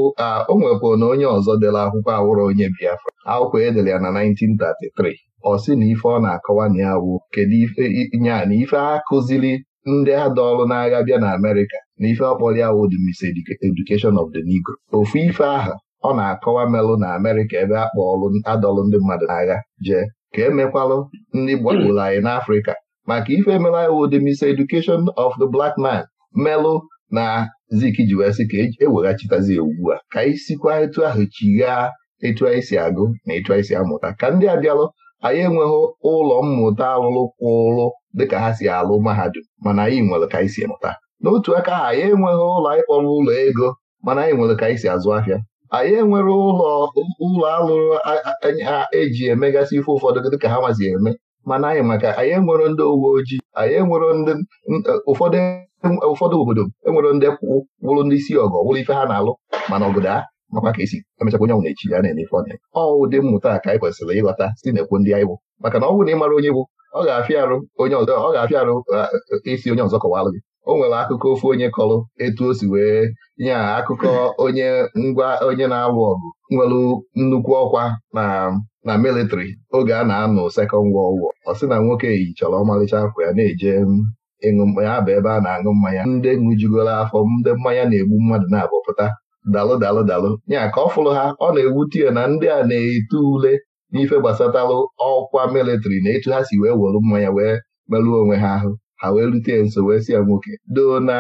S1: o nwepụ na onye ọzọ dere akwụkwọ awụrụ onye Biafra akwụkwọ edere ya na 1933 ọ sị na ife ọ na-akọwa na ya wụ kedu ife nya na ife a kụziri ndị ada ọrụ n'agha bịa na Amerika na ife ọkpọrọ ya wụ the miseducation of the Negro ofu ife aha ọ na-akọwa melụ na amerika ebe a kpọọlụ adọlụ ndị mmadụ n'agha jee ka emekwalụ ndị gbagburu hmm. anyị n'Afrịka maka ife emela iwu dị mis Education of the Black Man melụ na zik ji sị ka eweghachitazi e ugbu a ka anyị sikwa etu ahụ chighaa etu anyị si agụ na etu anyị si amụta ka ndị abịalụ anyị enweghị ụlọ mmụta alụlụ kwụlụ dịka ha si alụ mahadum mana anyị nwere ka anyị si mụta n'otu aka ahụ anyị enweghị ụlọ anyị kpọrọ ụlọ ego mana anyị nwere ka anyị si azụ ahịa anyị enwere ụlọ ụlọ alụrụ ha eji emegasị ife ụfọdụ dịka ha mazi eme mana anyị maka anyị enwere ndị uwe ojii anyị enwere ndị ụfọdụ obodo enwere ndị wụrụ ndị isi ọgọ wụrụ ife ha na-alụ mana obodo a makwa ka esi emechakwa onye na-echi ya na-eme ife ọ na ọ ụdị mmụta ka anyị kwesịrị ịghọta site na ndị anyị bụ maka na ọ bụrụ na ị mara onye bụ ọ ga-afịa arụ onye ọzọ ọ ga-afịa arụ isi onye ọzọ kọwalụ gị o nwere akụkọ ofu onye kọrọ etu o si wee nye akụkọ onye ngwa onye na-alụ ọgụ nwere nnukwu ọkwa na na militri oge a na-anụ sekọnd wọld wọ ọ sị na nwoke yi chọrọ ọmalịcha akwa ya na-eje ịṅụ mmanya bụ ebe a na-aṅụ mmanya ndị ṅụjugoro afọ ndị mmanya na-egbu mmadụ na-abọpụta dalụ dalụ dalụ ya ka ọ fụrụ ha ọ na ewu ya na ndị a na-eto ule n'ife gbasatalụ ọkwa mịlịtrị na etu ha si wee were mmanya wee merụọ onwe ha ahụ ha wee rute ya nso wee si ya nwoke doo na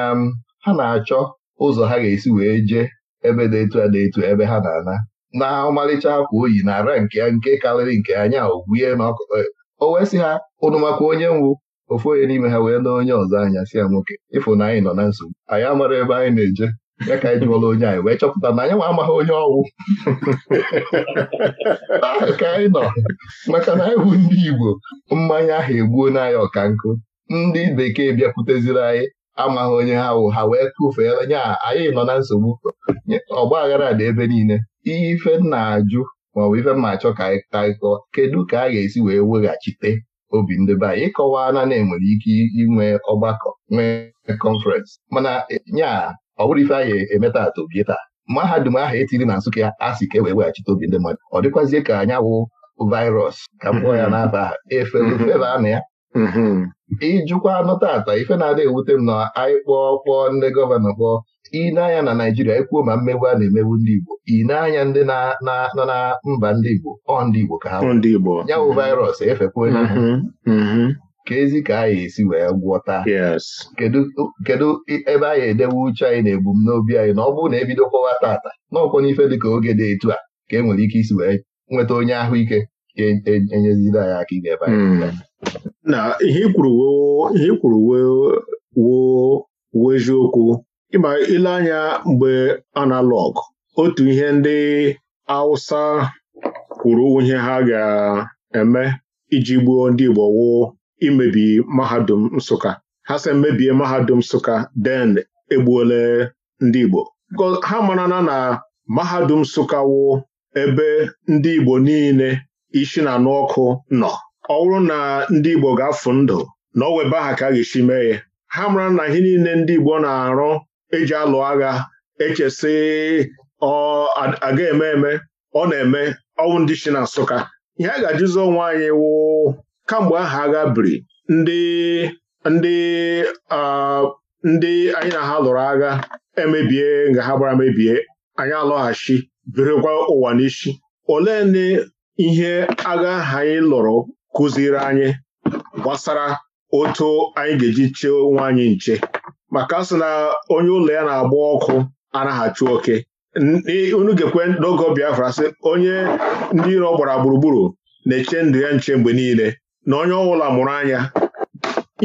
S1: ha na-achọ ụzọ ha ga-esi wee jee ebe detu etu ebe ha na-ana na ọmalịcha akwa oyi na ara nke ya nke karịrị nke anya ogwuye na ọkụkọ ya e, o wee si ha ụnụ maka onye nwụ ofu onye n'ime ha wee na onye ọzọ anya si ya nwoke ịfụ na anyị nọ na nsogbu anyị amara ebe anyị na-eje ya ka anyị jụọla onye anyị wee chọpụta na anyị nwa amaghị onye ọnwụ ah, ka anyị nọ maka na anyị bụ ndị Igbo mmanya ahụ egbuo n'anya ọka nkụ ndị bekee bịakwuteziri anyị amaghị onye ha wụ ha wee kụfee nya anyị nọ na nsogbu ọgba aghara dị ebe niile ihe ife na-ajụ maọbụ ife mma achọ ka anyị taịkọ kedu ka a ga-esi wee weghachite obi ndị be anyị ịkọwa na na-enwere ike inwe ọgbakọ nwee kọnferensị mana e, nya ọ bụrụ ife anyị emeta atụ bie taa mahadum ahụ etiri na Nsụka ya asị ka e wee weghachite obi ndị mmadụ ọ dịkwazie ka anya wụ vairọs ka m ya n'afa efe feva na ya Ịjụkwa mm-hmm. anụ tata ife na-adị ewute m na anyị kpọọ kpọọ ndị gọvanọ kpọọ ịneanya na Naijiria ekwuo ma mmegbu a na-emegbu ndị Igbo ịneanya ndị nọ na mba ndị Igbo ọ ndị Igbo ka ha ya bụ vaịrọs efekwe ha mm-hmm. Mm-hmm. ka ezi ka anyị esi wee gwọta kedu ebe anyị edewe uche anyị na ebumnobi anyị na ọ bụrụ na ebido kpọwa tata n'ọkwọ n'ife ka oge dị etu a ka e nwere ike isi wee nweta onye ahụike enyezila ya aka ebe
S3: na ihe ikwuru ihe ikwuru woo eziokwu ịma ile anya mgbe analọg otu ihe ndị Hausa kwuru ihe ha ga-eme iji gbuo ndị Igbo wo imebi mahadum Nsụka ha sị mebie mahadum Nsụka den egbuole ndị Igbo ha marana na mahadum Nsụka wuo ebe ndị Igbo niile isi na anụ ọkụ nọ ọ bụrụ na ndị Igbo ga-afụ ndụ na ọ weba ha ka a ga-esi mee ya ha mara na ihe niile ndị Igbo na-arụ eji alụ agha echesi ọ aga eme eme ọ na-eme ọnwụ ndị si na Nsụka ihe a ga-ajụzi onwe anyị wụ kamgbe aha agha biri ndị ndị ndị anyị na ha lụrụ agha emebie nga ha gbara mebie anyị alọghachi birikwa ụwa n'isi olee ihe agha ha anyị lụrụ kụziri anyị gbasara otu anyị ga-eji chee onwe anyị nche maka sị na onye ụlọ ya na-agba ọkụ anaghachi oke unu ga-ekwe n'oge Biafra sị onye ndị iro gbara gburugburu na-eche ndụ ya nche mgbe niile na onye ọbụla mụrụ anya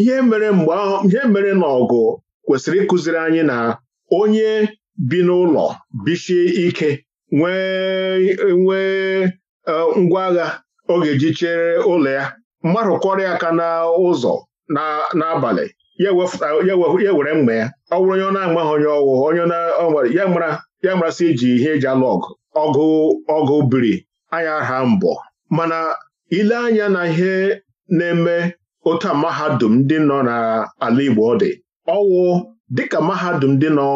S3: ihe mere mgbe ahụ ihe mere na ọgụ kwesịrị ịkụziri anyị na onye bi n'ụlọ bichie ike nwee nwee ngwa agha ọ ga-eji chere ụlọ ya mmadụ aka n'ụzọ n'abalị ya were mgbe ya ọ bụrụ onye ọ na-amaghị onye ọwụ onye nwere ya marasị iji ihe eji alụ ọgụ ọgụ ọgụ biri anya ha mbọ mana ile anya na ihe na-eme otu a mahadum ndị nọ n'ala Igbo dị ọwụ dịka mahadum ndị nọ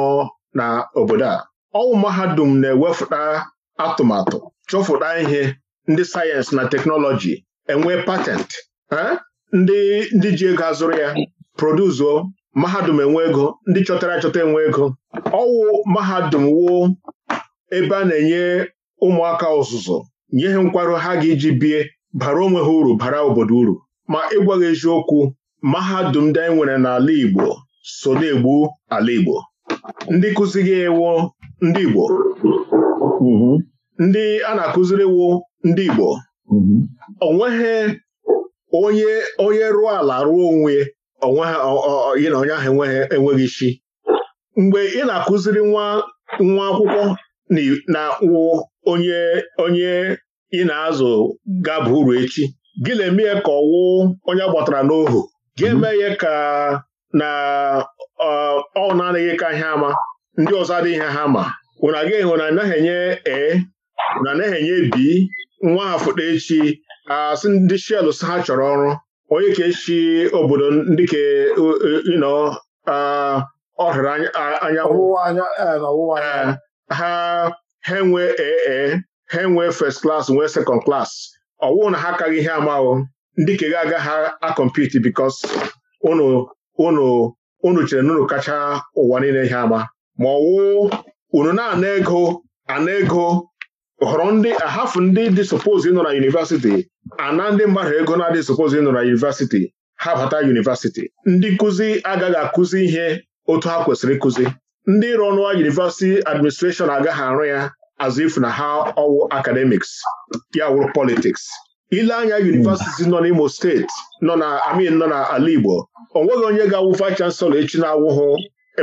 S3: n'obodo a ọwụ mahadum na-ewefụta atụmatụ chọfụta ihe ndị sayensị na teknọlọji enwe patentị ndị ndị ji ego azụrụ ya produzuo mahadum enwe ego ndị chọtara achọta enwe ego ọwụ mahadum wuo ebe a na-enye ụmụaka ọzụzụ nye ha nkwarụ ha ga-eji bie bara onwe ha uru bara obodo uru ma ịgwaghị eziokwu mahadum ndị anyị nwere n'ala Igbo so na-egbu ala Igbo ndị kụzighị gị ndị Igbo mhm. ndị a na akụziriwo ndị Igbo mm-hmm. onweghị onye onye rụọ ala rụọ onwe ya na onye ahụ enweghị isi mgbe ị na-akụziri nwa nwa akwụkwọ na wụ onye onye ị na-azụ gaba uru echi gị na-eme ya ka ọwụ onye gbatara n'ohu gị mm-hmm. eme ya ka na ọ na-adịghị ka ihe ama ndị ọzọ adịghị ihe ha ma anaghị enye ee na na-enye bi nwafụda echi asị ndị shel ha chọrọ ọrụ onye ka echi obodo ndị ka ịnọ ọhịra anyanwụ ha ha enwe ee ha enwe first class nwee second klas ọ na ha akaghị ihe amahụ ndị ka ga aga ha akọmpiti bikos unu chere na kacha ụwa niile ihe ama ma ọ unu na-ana ego ana ego họrọ ndị ahafụ ndị dị suppose nọ na yunivasiti ana ndị mmadụ ego na-adị suppose nọ na yunivasiti ha bata yunivasiti ndị nkụzi agaghị akụzi ihe otu ha kwesịrị ịkụzi ndị ịrụ ọnụa yunivasiti administreshọn agaghị arụ ya azụ ifu na ha ọwụ akademiks ya wụrụ politiks ile anya yunivasiti nọ n'Imo steeti nọ na amin nọ na ala Igbo o nweghị onye ga-awụ vice chancellor echi na awụhụ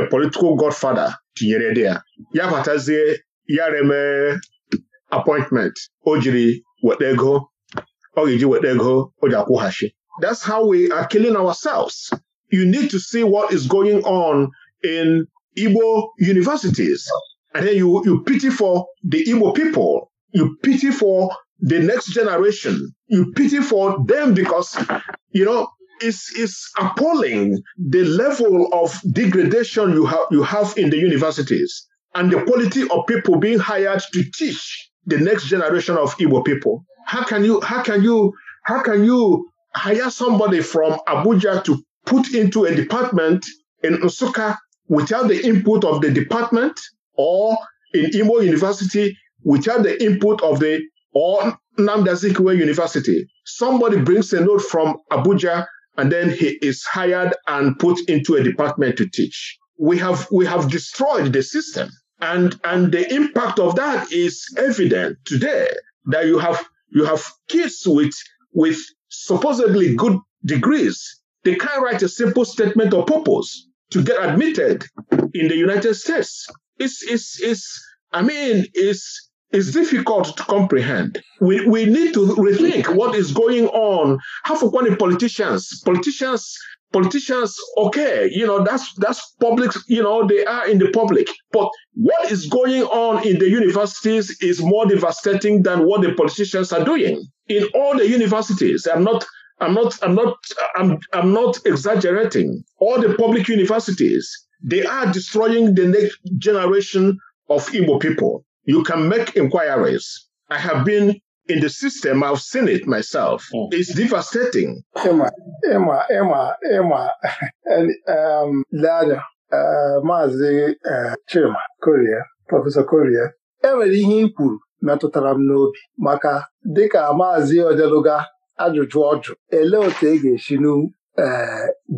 S3: a political godfather tinyere dị ya ya batazie ya remee appointment o jiri weta ego ọ ga-eji weta ego that's how we are killing ourselves you need to see what is going on in Igbo universities and then you, you pity for the Igbo people you pity for the next generation you pity for them because you know it's, it's appalling the level of degradation you have, you have in the universities and the quality of people being hired to teach the next generation of Igbo people? How can you how can you how can you hire somebody from Abuja to put into a department in Nsukka without the input of the department or in Imo University without the input of the or Nnamdi Azikiwe University? Somebody brings a note from Abuja and then he is hired and put into a department to teach. We have we have destroyed the system. And, and the impact of that is evident today that you have, you have kids with, with supposedly good degrees. They can't write a simple statement of purpose to get admitted in the United States. It's, it's, it's, I mean, it's, it's difficult to comprehend. We, we need to rethink what is going on. Half of one the politicians, politicians politicians, ok you know, that's that's public, you know, they are in the public. But what is going on in the universities is more devastating than what the politicians are doing. In all the universities, I'm not I'm not I'm not I'm I'm not exaggerating. All the public universities, they are destroying the next generation of Igbo people. You can make inquiries. I have been in the system. I've seen it myself. Mm. It's devastating.
S5: Emma, Emma, Emma, Emma, and um, Lada, Maazị uh, Chima Korea, Prọfesọ Korea, enwere ihe i kwuru metụtara m n'obi maka dịka Maazị Odeluga ajụjụ ọjụ ele otu e ga-esi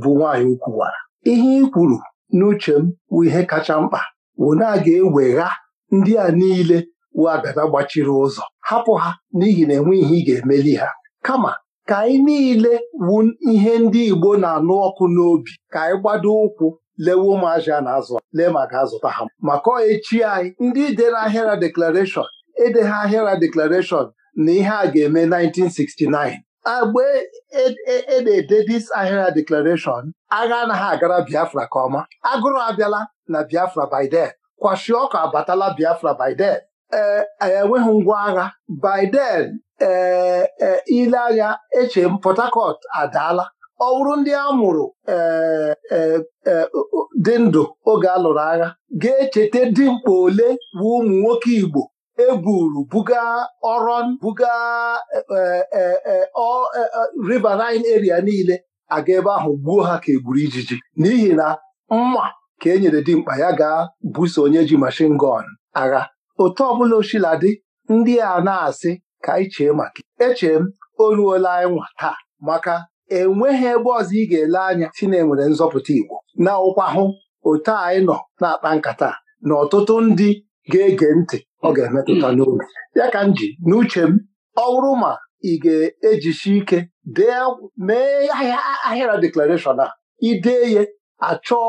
S5: bụ nwaanyị ukwuwara ihe i kwuru n'uche m bụ ihe kacha mkpa wụ na a ga-ewegha ndị a niile abịaba gbachiri ụzọ hapụ ha n'ihi na enwe ihe ị ga-emeli ha kama ka anyị niile wu ihe ndị Igbo na-anụ ọkụ n'obi ka anyị gbado ụkwụ lewe ụmụazị a na-azụ lee ma ga-azụta ha maka echi anyị ndị dere ahịara deklarashọn ha ahịara deklarashọn na ihe a ga-eme 1969 agbe e, e, e ede dis ahịara deklarashọn agha anaghị agara Biafra ka ọma agụrụ abịala na Biafra by then kwashi ọka abatala Biafra by then ee e, enweghị ngwa agha Biden ee ile eche m Port Harcourt adaala ọ bụrụ ndị a mụrụ e, e, dị ndụ oge a lụrụ agha ga-echeta dimkpa ole bụ ụmụ nwoke Igbo eburu buga Oron buga Riverine area niile aga ebe ahụ gbuo ha ka egburu ijiji n'ihi na mma ka e nyere dimkpa ya gaa buso onye ji mashin gọn agha otu ọbụla osila dị ndị a na-asị ka anyị chee maka Eche m o ruola anyị nwa taa maka enweghị ebe ọzọ ị ga-ele anya si na enwere nzọpụta Igbo na ụkwa hụ otu anyị nọ na-akpa nkata na ọtụtụ ndị ga-ege ntị ọ ga-emetụta n'obi ya ka m ji n'uche m ọ bụrụ ma ị ga-ejisi ike dee mee ahịara deklarashọn a idee ye achọọ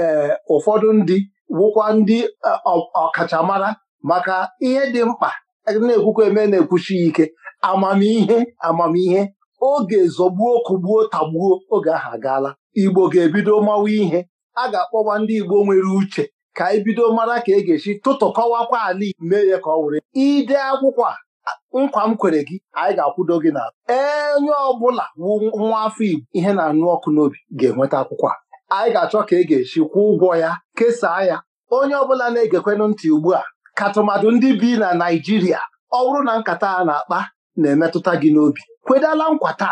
S5: ee eh, ụfọdụ ndị wụkwa ndị eh, ọkachamara maka ihe dị mkpa na-ekwukwa eme na-ekwuchi ya ike amamihe amamihe oge zọgbuo kụgbuo tagbuo oge ahụ agaala Igbo ga-ebido mawa ihe a ga-akpọwa ndị Igbo nwere uche ka anyị e bido mara ka e ga-esi kọwakwa ala mee ya ka ọ were ide akwụkwọ a nkwa m kwere gị anyị ga-akwụdo gị na onye ọbụla wu nwa afọ Igbo ihe na-anụ ọkụ n'obi ga-enweta akwụkwọ a anyị ga-achọ ka e ga-esi kwụọ ụgwọ ya kesaa ya onye ọbụla na-egekwenụ ntị ugbu a katụmadụ ndị bi na Naijiria, ọwụrụ na nkata a na-akpa na-emetụta gị n'obi kwedala nkwata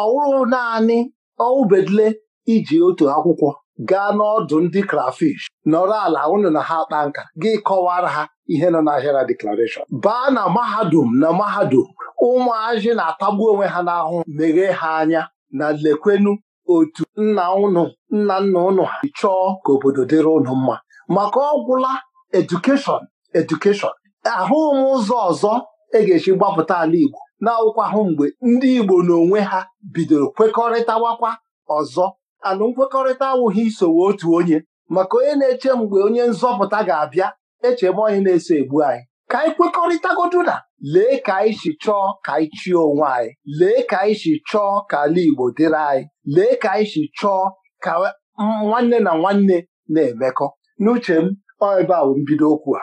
S5: ọwụrụ naanị ọwụbedule iji otu akwụkwọ gaa n'ọdụ ndị krafish nọrọ ala ụnụ na ha kpaa nka gị kọwara ha ihe nọ n'ahịara deklarashọn baa na mahadum na mahadum ụmụazị na-atagbu onwe ha n'ahụ meghee ha anya na lekwenu otu nna ụnụ nna nna ụnụ ha chọọ ka obodo dịrị ụnụ mma maka ọgwụla edukeshọn edukeshọn ahụghị m ụzọ ọzọ e ga-esi gbapụta ala Igbo na-awụkwa ahụ mgbe ndị Igbo n'onwe ha bidoro kwekọrịtawakwa ọzọ alụ nkwekọrịta awụghị isowe otu onye maka onye na-eche mgbe onye nzọpụta ga-abịa echebe onye na-eso egbu anyị ka anyị kwekọrịtagodu na lee ka anyị si chọọ ka anyị chie onwe anyị lee ka anyị si chọọ ka ala Igbo dịrị anyị lee ka anyị si chọọ ka nwanne na nwanne na-emekọ n'uche m ọ ebe a mbido okwu a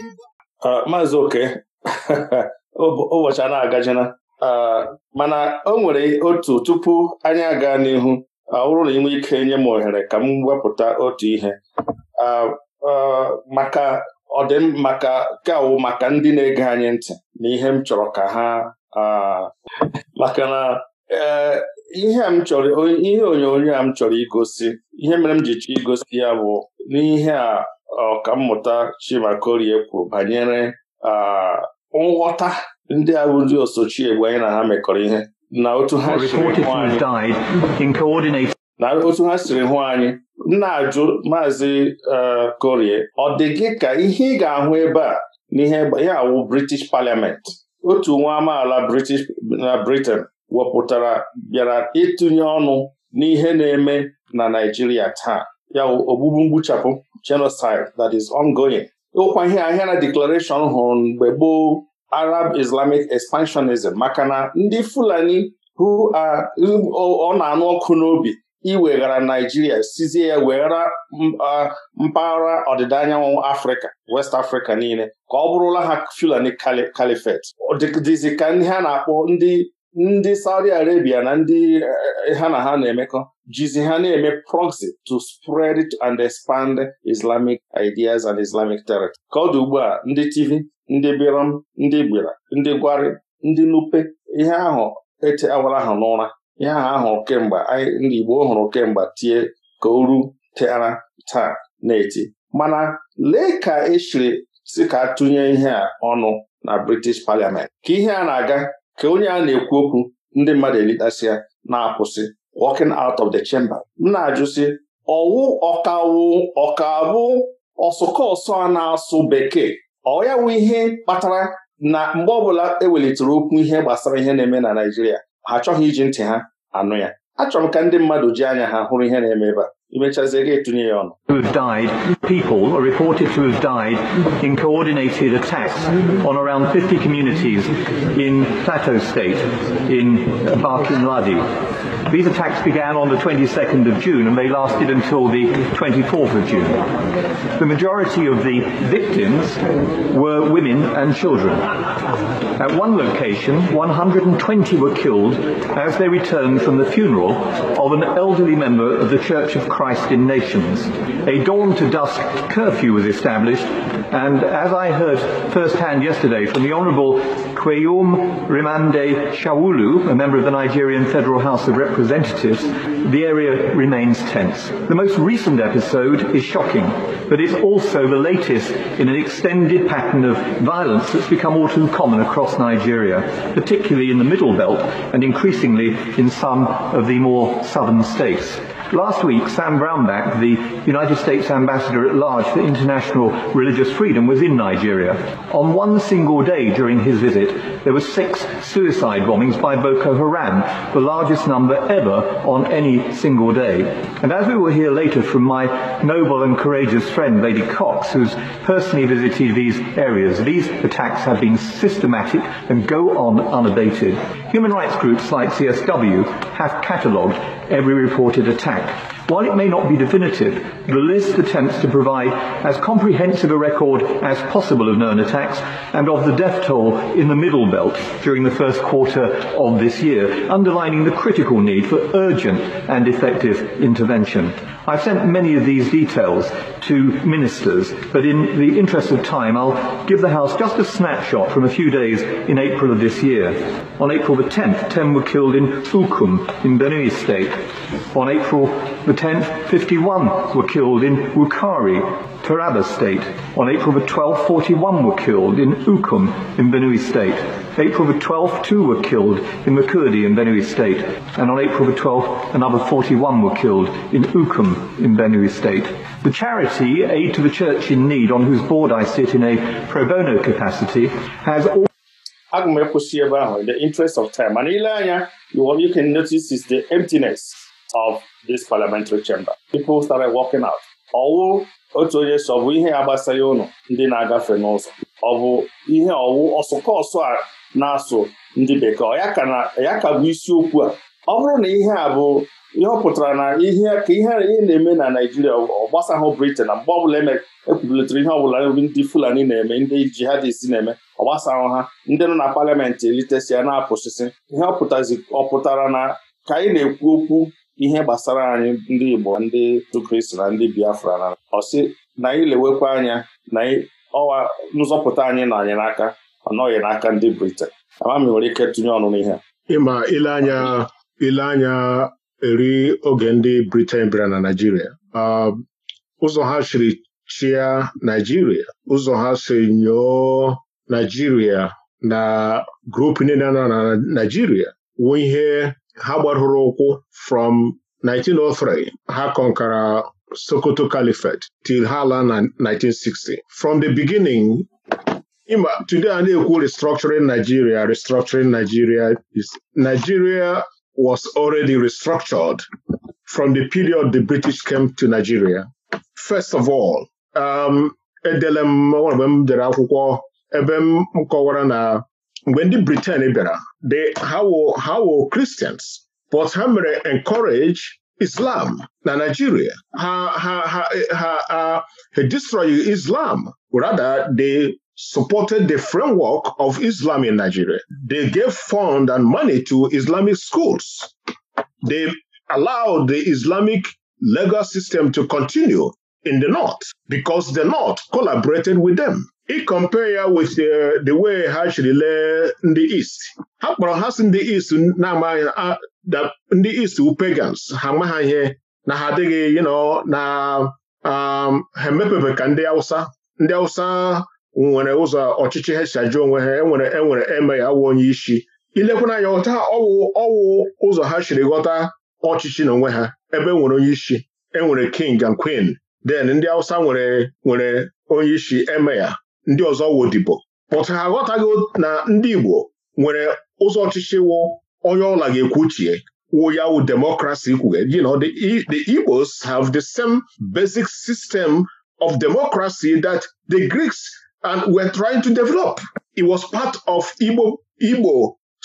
S2: maazị oke ụbọchị a na-agajina mana o nwere otu tupu anyị aga n'ihu ọ na ike nye m ohere ka m wepụta otu ihe maka ọdịm maka maka ndị na-ege anyị ntị na ihe m chọrọ ka ha maka na e, ihe onyonyo a m chọrọ igosi ihe mere m ji chọọ igosi ya bụ n'ihe a ọkammụta Chimakorie kwu banyere nghọta ndị a ndị osochi egbe anyị na ha mekọrọ ihe na otu ha siri hụ anyị na-ajụ maazị e, Korie ọ dị gị ka ihe ị ga-ahụ ebe a n'ihe ya awụ British Parliament otu nwa amaala British na Britain wepụtara bịara ịtụnye ọnụ n'ihe na-eme na Naijiria taa ya ogbugbu mgbuchapụ genocide that is ongoing. Okwa ihe ahịa na declaration hụrụ mgbe gboo Arab Islamic expansionism maka na ndị Fulani ọ na-anụ ọkụ n'obi iweghara Naijiria sizie ya weghara mpaghara ọdịda anyanwụ Afrịka West Africa niile ka ọ bụrụla ha Fulani Caliphate dịzị ka ndị ha na-akpọ ndị ndị Saudi Arabia na ndị eh, ha na ha na-emekọ jizi ha na-eme proxy to spread and expand Islamic ideas and Islamic territory. Ka ọ dị ugbu a ndị TV ndị Biram ndị Gbira ndị Gwari ndị Nupe ihe ahụ ete awara ahụ n'ụra ihe ahụ ahụ kemgbe anyị ndị Igbo hụrụ kemgbe tie ka uru teara taa na-eti mana lee ka esiri si ka tụnye ihe a ọnụ na British Parliament ka ihe a na-aga ka onye a na-ekwu okwu ndị mmadụ ya na-akwụsị walking out of the chamber m na-ajụ sị ọwụ ọkawu ọkabụ ọsọ a na-asụ bekee ọ ya wụ ihe kpatara na mgbe ọbụla ewelitere okwu ihe gbasara ihe na-eme na Naịjirịa ha achọghị iji ntị ha anụ ya achọrọ m ka ndị mmadụ ji anya ha hụrụ ihe na-eme ebe a imechazie gị etinye
S7: died people are reported to have died in coordinated attacks on around 50 communities in Plateau state in Barkin Ladi These attacks began on the 22nd of June and they lasted until the 24th of June. The majority of the victims were women and children. At one location, 120 were killed as they returned from the funeral of an elderly member of the Church of Christ Christ in Nations. A dawn to dusk curfew was established, and as I heard firsthand yesterday from the Honourable Kweyum Rimande Shawulu, a member of the Nigerian Federal House of Representatives, the area remains tense. The most recent episode is shocking, but it's also the latest in an extended pattern of violence that's become all too common across Nigeria, particularly in the Middle Belt and increasingly in some of the more southern states. Last week, Sam Brownback, the United States Ambassador at Large for International Religious Freedom, was in Nigeria. On one single day during his visit, there were six suicide bombings by Boko Haram, the largest number ever on any single day. And as we will hear later from my noble and courageous friend, Lady Cox, who's personally visited these areas, these attacks have been systematic and go on unabated. Human rights groups like CSW have catalogued every reported attack Thank While it may not be definitive, the list attempts to provide as comprehensive a record as possible of known attacks and of the death toll in the Middle Belt during the first quarter of this year, underlining the critical need for urgent and effective intervention. I've sent many of these details to ministers, but in the interest of time, I'll give the House just a snapshot from a few days in April of this year. On April the 10th, 10 were killed in Fulkum in Benue State. On April the 10 51 were killed in Wukari, Taraba state. On April the 12th, 41 were killed in Ukum in Benue state. April the 12th, two were killed in Makurdi in Benue state. And on April the 12th, another 41 were killed in Ukum in Benue state. The charity Aid to the Church in Need, on whose board I sit in a pro bono capacity, has all
S2: aga m ekwụsị in the interest of time and ile anya you can notice is the emptiness of this parliamentary chamber. People started walking out. Ọwụ otu onye sọ bụ ihe a gbasara ụnụ ndị na-agafe n'ụzọ ọ bụ ihe ọwụ ọsụkọsụ a na-asụ ndị bekee ya ka bụ isiokwu a ọ bụrụ na ihe a bụ ihe ọ pụtara na ihe ka ihe ị na-eme na Naijiria ọ gbasahụ Britain na mgbe ọbụla ekwubulitere e ihe ọbụla ndị Fulani na-eme ndị jihadist na-eme ọ ha ndị nọ na paliamentị elitesi ya na-apụsịsị ihe ọ pụtara na ka anyị na-ekwu okwu ihe gbasara anyị ndị Igbo ndị Kristi na ndị Biafra na ọsị na anyị lewekwa anya na ọwa nzọpụta anyị na anyị n'aka ọ n'aka ndị Britain ama nwere ike tụnye ọnụ n'ihe a
S3: ịma ile anya ile anya eri oge ndị Britain bịara na Naịjirịa um, ụzọ ha chiri chịa Naịjirịa ụzọ ha si nyoo Naịjirịa na grupu niile nọ na Naịjirịa wuo ihe ha gbadoro ụkwụ from 1903 ha kọnkara Sokoto Caliphate till ha laa na 1960 from the beginning Ima today a na-ekwu restructuring Nigeria restructuring Nigeria is Nigeria was already restructured from the period the British came to Nigeria first of all um edele m m dere akwụkwọ ebe m kọwara na mgbe ndị Britain bịara ha hawo Christians but ha mere encourage Islam na Nigeria ha ha ha destroy Islam rather they supported the framework of Islam in Nigeria. They gave fund and money to Islamic schools. They allowed the Islamic legal system to continue in the North because the North collaborated with them. i compare ya with uh, the way ha siri lee ndị East ha kpọrọ ha si ndị East na-amaghị ndị East pagans ha amaghị ihe na ha adịghị you know na um, ha emepebe ka ndị Awụsa ndị Awụsa nwere ụzọ ọchịchị ha si ajụ onwe ha enwere enwere eme ya awụ onye isi ilekwana anya ọta ọwụ ọwụ ụzọ ha chiri ghọta ọchịchị na onwe ha ebe e nwere onye isi enwere king and queen then ndị Awụsa nwere nwere onye isi eme ya ndị ọzọ wodibo but ha aghọtaghị na ndị Igbo nwere ụzọ ọchịchị wụ onye ọla ga-ekwuchie wụ ya wụ democracy kwuge you know the, e, the Igbos have the same basic system of democracy that the Greeks and were trying to develop it was part of Igbo Igbo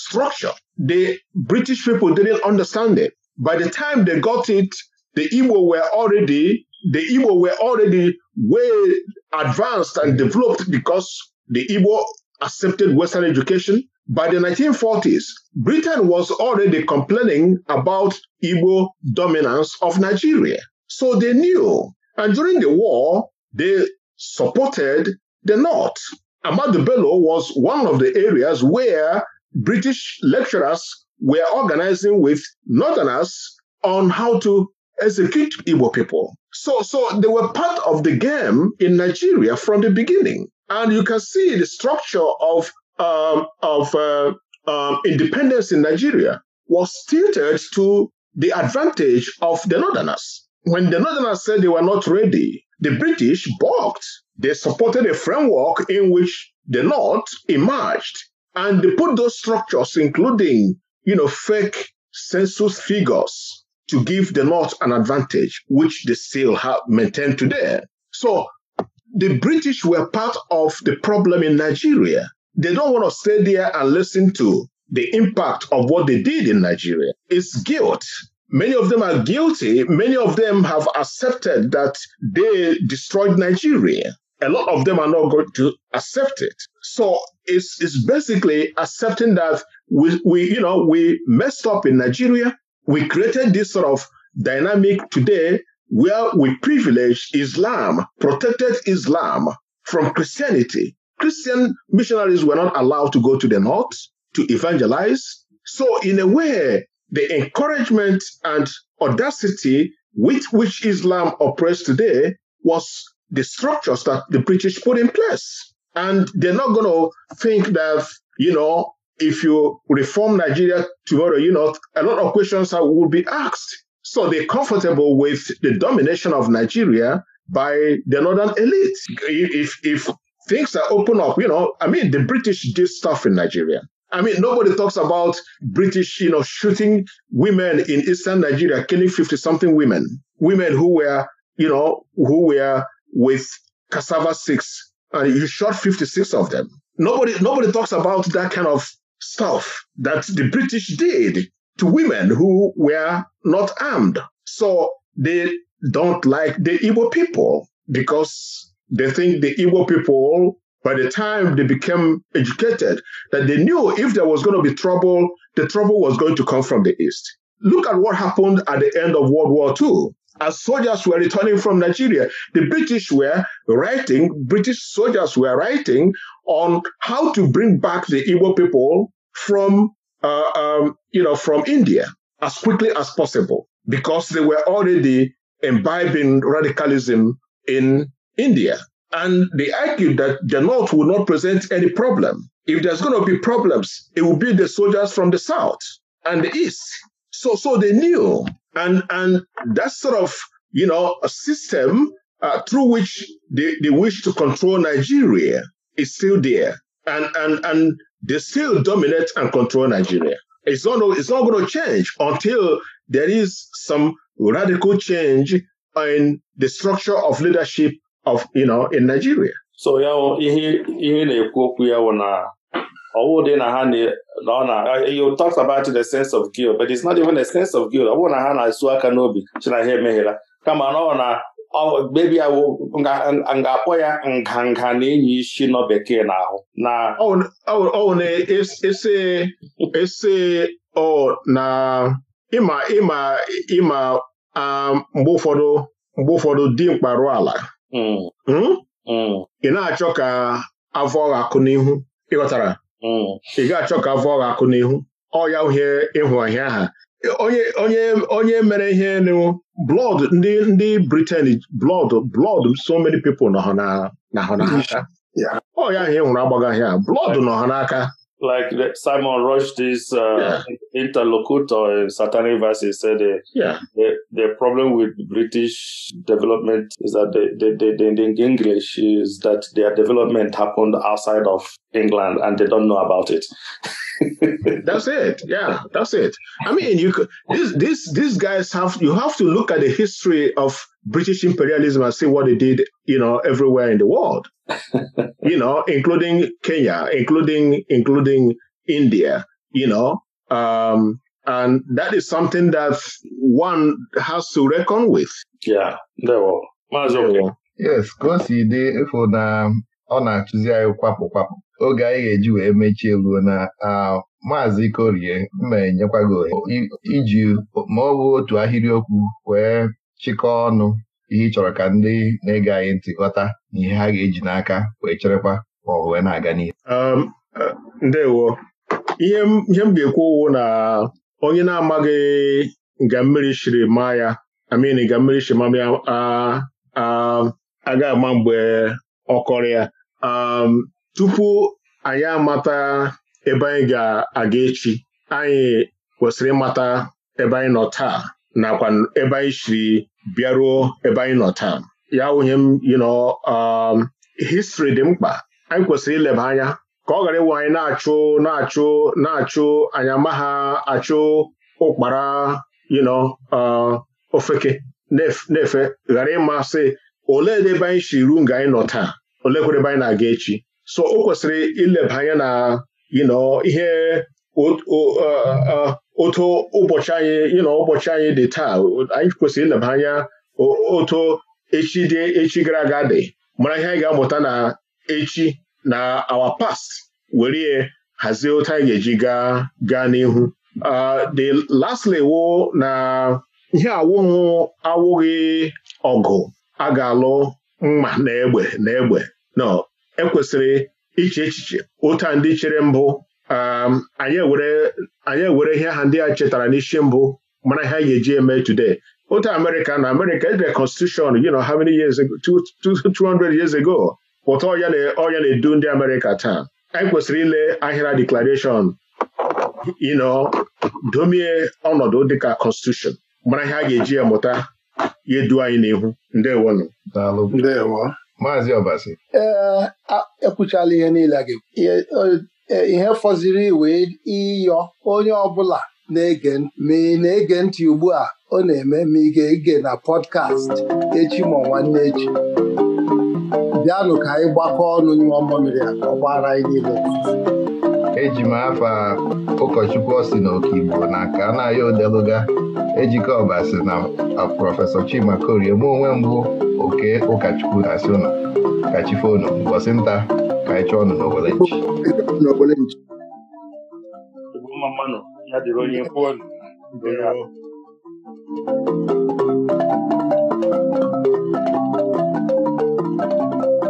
S3: structure the British people didn't understand it by the time they got it the Igbo were already the Igbo were already way advanced and developed because the Igbo accepted Western education. By the 1940s, Britain was already complaining about Igbo dominance of Nigeria. So they knew. And during the war, they supported the North. Amadu Bello was one of the areas where British lecturers were organizing with Northerners on how to execute Igbo people. So, so they were part of the game in Nigeria from the beginning. And you can see the structure of, um, of uh, um, independence in Nigeria was tilted to the advantage of the Northerners. When the Northerners said they were not ready, the British balked. They supported a framework in which the North emerged. And they put those structures, including, you know, fake census figures, to give the North an advantage, which they still have maintained today. So the British were part of the problem in Nigeria. They don't want to stay there and listen to the impact of what they did in Nigeria. It's guilt. Many of them are guilty. Many of them have accepted that they destroyed Nigeria. A lot of them are not going to accept it. So it's, it's basically accepting that we, we, you know, we messed up in Nigeria. we created this sort of dynamic today where we privilege Islam, protected Islam from Christianity. Christian missionaries were not allowed to go to the north to evangelize. So, in a way, the encouragement and audacity with which Islam operates today was the structures that the British put in place. And they're not going to think that, you know, if you reform Nigeria tomorrow, you know, a lot of questions will be asked. So they're comfortable with the domination of Nigeria by the northern elite. If, if things are open up, you know, I mean, the British did stuff in Nigeria. I mean, nobody talks about British, you know, shooting women in eastern Nigeria, killing 50 something women, women who were, you know, who were with cassava six, and you shot 56 of them. Nobody, nobody talks about that kind of stuff that the British did to women who were not armed. So they don't like the Igbo people because they think the Igbo people, by the time they became educated, that they knew if there was going to be trouble, the trouble was going to come from the East. Look at what happened at the end of World War II. As soldiers were returning from Nigeria, the British were writing, British soldiers were writing on how to bring back the Igbo people from uh, um, you know from India as quickly as possible because they were already imbibing radicalism in India. And they argued that the would will not present any problem. If there's going to be problems, it will be the soldiers from the South and the East. So, so they knew, and and that sort of you know a system uh, through which they, they wish to control Nigeria is still there, and and and they still dominate and control Nigeria. It's not, it's not going to change until there is some radical change in the structure of leadership of, you know, in Nigeria.
S2: So ya ihe ihe na-ekwu okwu ya wụ na ọwụ dị na ha na ọ na uh, you talk about the sense of guilt but it's not even a sense of guilt ọ bụrụ na ha na-esu aka n'obi ha emeghela kama na ọ na ọ oh, gbebiawo nga-akpọ ya nganga na enyi isi nọ bekee n'ahụ na
S3: ọ oh, na oh, ese ese ọ na ịma ịma ịma mgbe um, ụfọdụ mgbe ụfọdụ dimkpa rụọ ala mm. Hmm? Mm. ị na-achọ ka avọ ọgha akụ n'ihu ịghọtara mm. ị ga-achọ ka avọ ọgha akụ n'ihu ọ ya uhie ịhụ ọhịa ha onye onye onye mere ihe blood ndị ndị Britain blood blood so many people nọ na ha n'aka ọ ya ahụ ịnwụrụ e agbaghị agbagaghị a blood nọ ha n'aka
S2: like the, Simon Rushdie's uh, yeah. interlocutor in Satanic Verses said uh, yeah. the, the problem with British development is that the, the, the, the English is that their development happened outside of England and they don't know about it. that's it. Yeah, that's it. I mean, you could,
S3: this, this, these guys have, you have to look at the history of British imperialism and see what they did, you know, everywhere in the world. you know, including Kenya, including including India, you know, um, and that is something that one has to reckon with. Yeah, ndewo maazị Okeke.
S1: Yes, ka o si dị ịfụ na ọ na-atụzi anyị kwapụ kwapụ oge anyị ga-eji wee mechie ruo na maazị Korie mma enyekwa gị iji ma ọ bụ otu ahịrịokwu wee chịkọọ ọnụ ihe ị chọrọ ka ndị na-ege anyị ntị ghọta na ihe ha ga-eji n'aka wee cherekwa ma ọ wee na-aga n'ihu
S3: um, ndewo ihe m ga-ekwu ụwụ na onye na-amaghị nga mmiri shiri ma ya amin nga mmiri shiri ma aga ama mgbe ọkọrọ ya um, tupu anyị amata ebe anyị ga-aga echi anyị kwesịrị ịmata ebe anyị nọ taa nakwa ebe anyị shiri bịaruo ebe anyị nọ taa ya wụnye m yino um, histri dị mkpa anyị kwesịrị ileba anya ka ọ ghara ịwụ anyị na-achụ na-achụ na-achụ anyị amaghị achụ ụkpara yino uh, ofeke na-efe ghara ịmasị olee ebe anyị si ruo nga anyị nọ taa olekwere ebe anyị na-aga echi so o kwesịrị ileba anya na yino ihe uh, uh, otu ụbọchị anyị dị taa anyị kwesịrị ileba anya otu echi dị echi gara aga dị mara ihe anyị ga-amụta na echi na awa past were hazie otu anyị ga-eji gaa n'ihu uh, the lastly wo na ihe awụghụ awụghị ọgụ a ga-alụ mma na egbe na egbe no ekwesịrị iche echiche ụta ndị chere mbụ anyị ewere ihe ha ndị a chetara n'isi mbụ mana ha ga-eji eme today otu Amerika na America ejire constitution you know how many years ago 200 years ago pụta ọya na-edu ndị Amerika taa anyị kwesịrị ile ahịra declaration you know domie ọnọdụ dịka constitution mara ihe a ga-eji mụta ya edu anyị n'ihu ndewonụ ndewo maazị
S1: Obasi
S5: ee eh, ekwuchala ihe niile a ga-ekwu E, ihe fọziri wee ịyọ onye ọbụla na-ege ma ị na-ege ntị ugbu a ọ na-eme ma ị ga-ege na pọdkast echi ma nwanne echi bịanụ ka anyị gbakọ ọnụ nyụọ mmamiri a ọ gbara anyị niile
S1: eji m afa ụkọchukwu ọ si okigbo na ka a na-aya odeluga Ejikeọba si na prọfesọ Chima Korie mụ onwe mbụ oke ụkọchukwu na-asị ụnụ kachifo unu mbọsị nta ka anyị ọnụ nchi
S2: Thank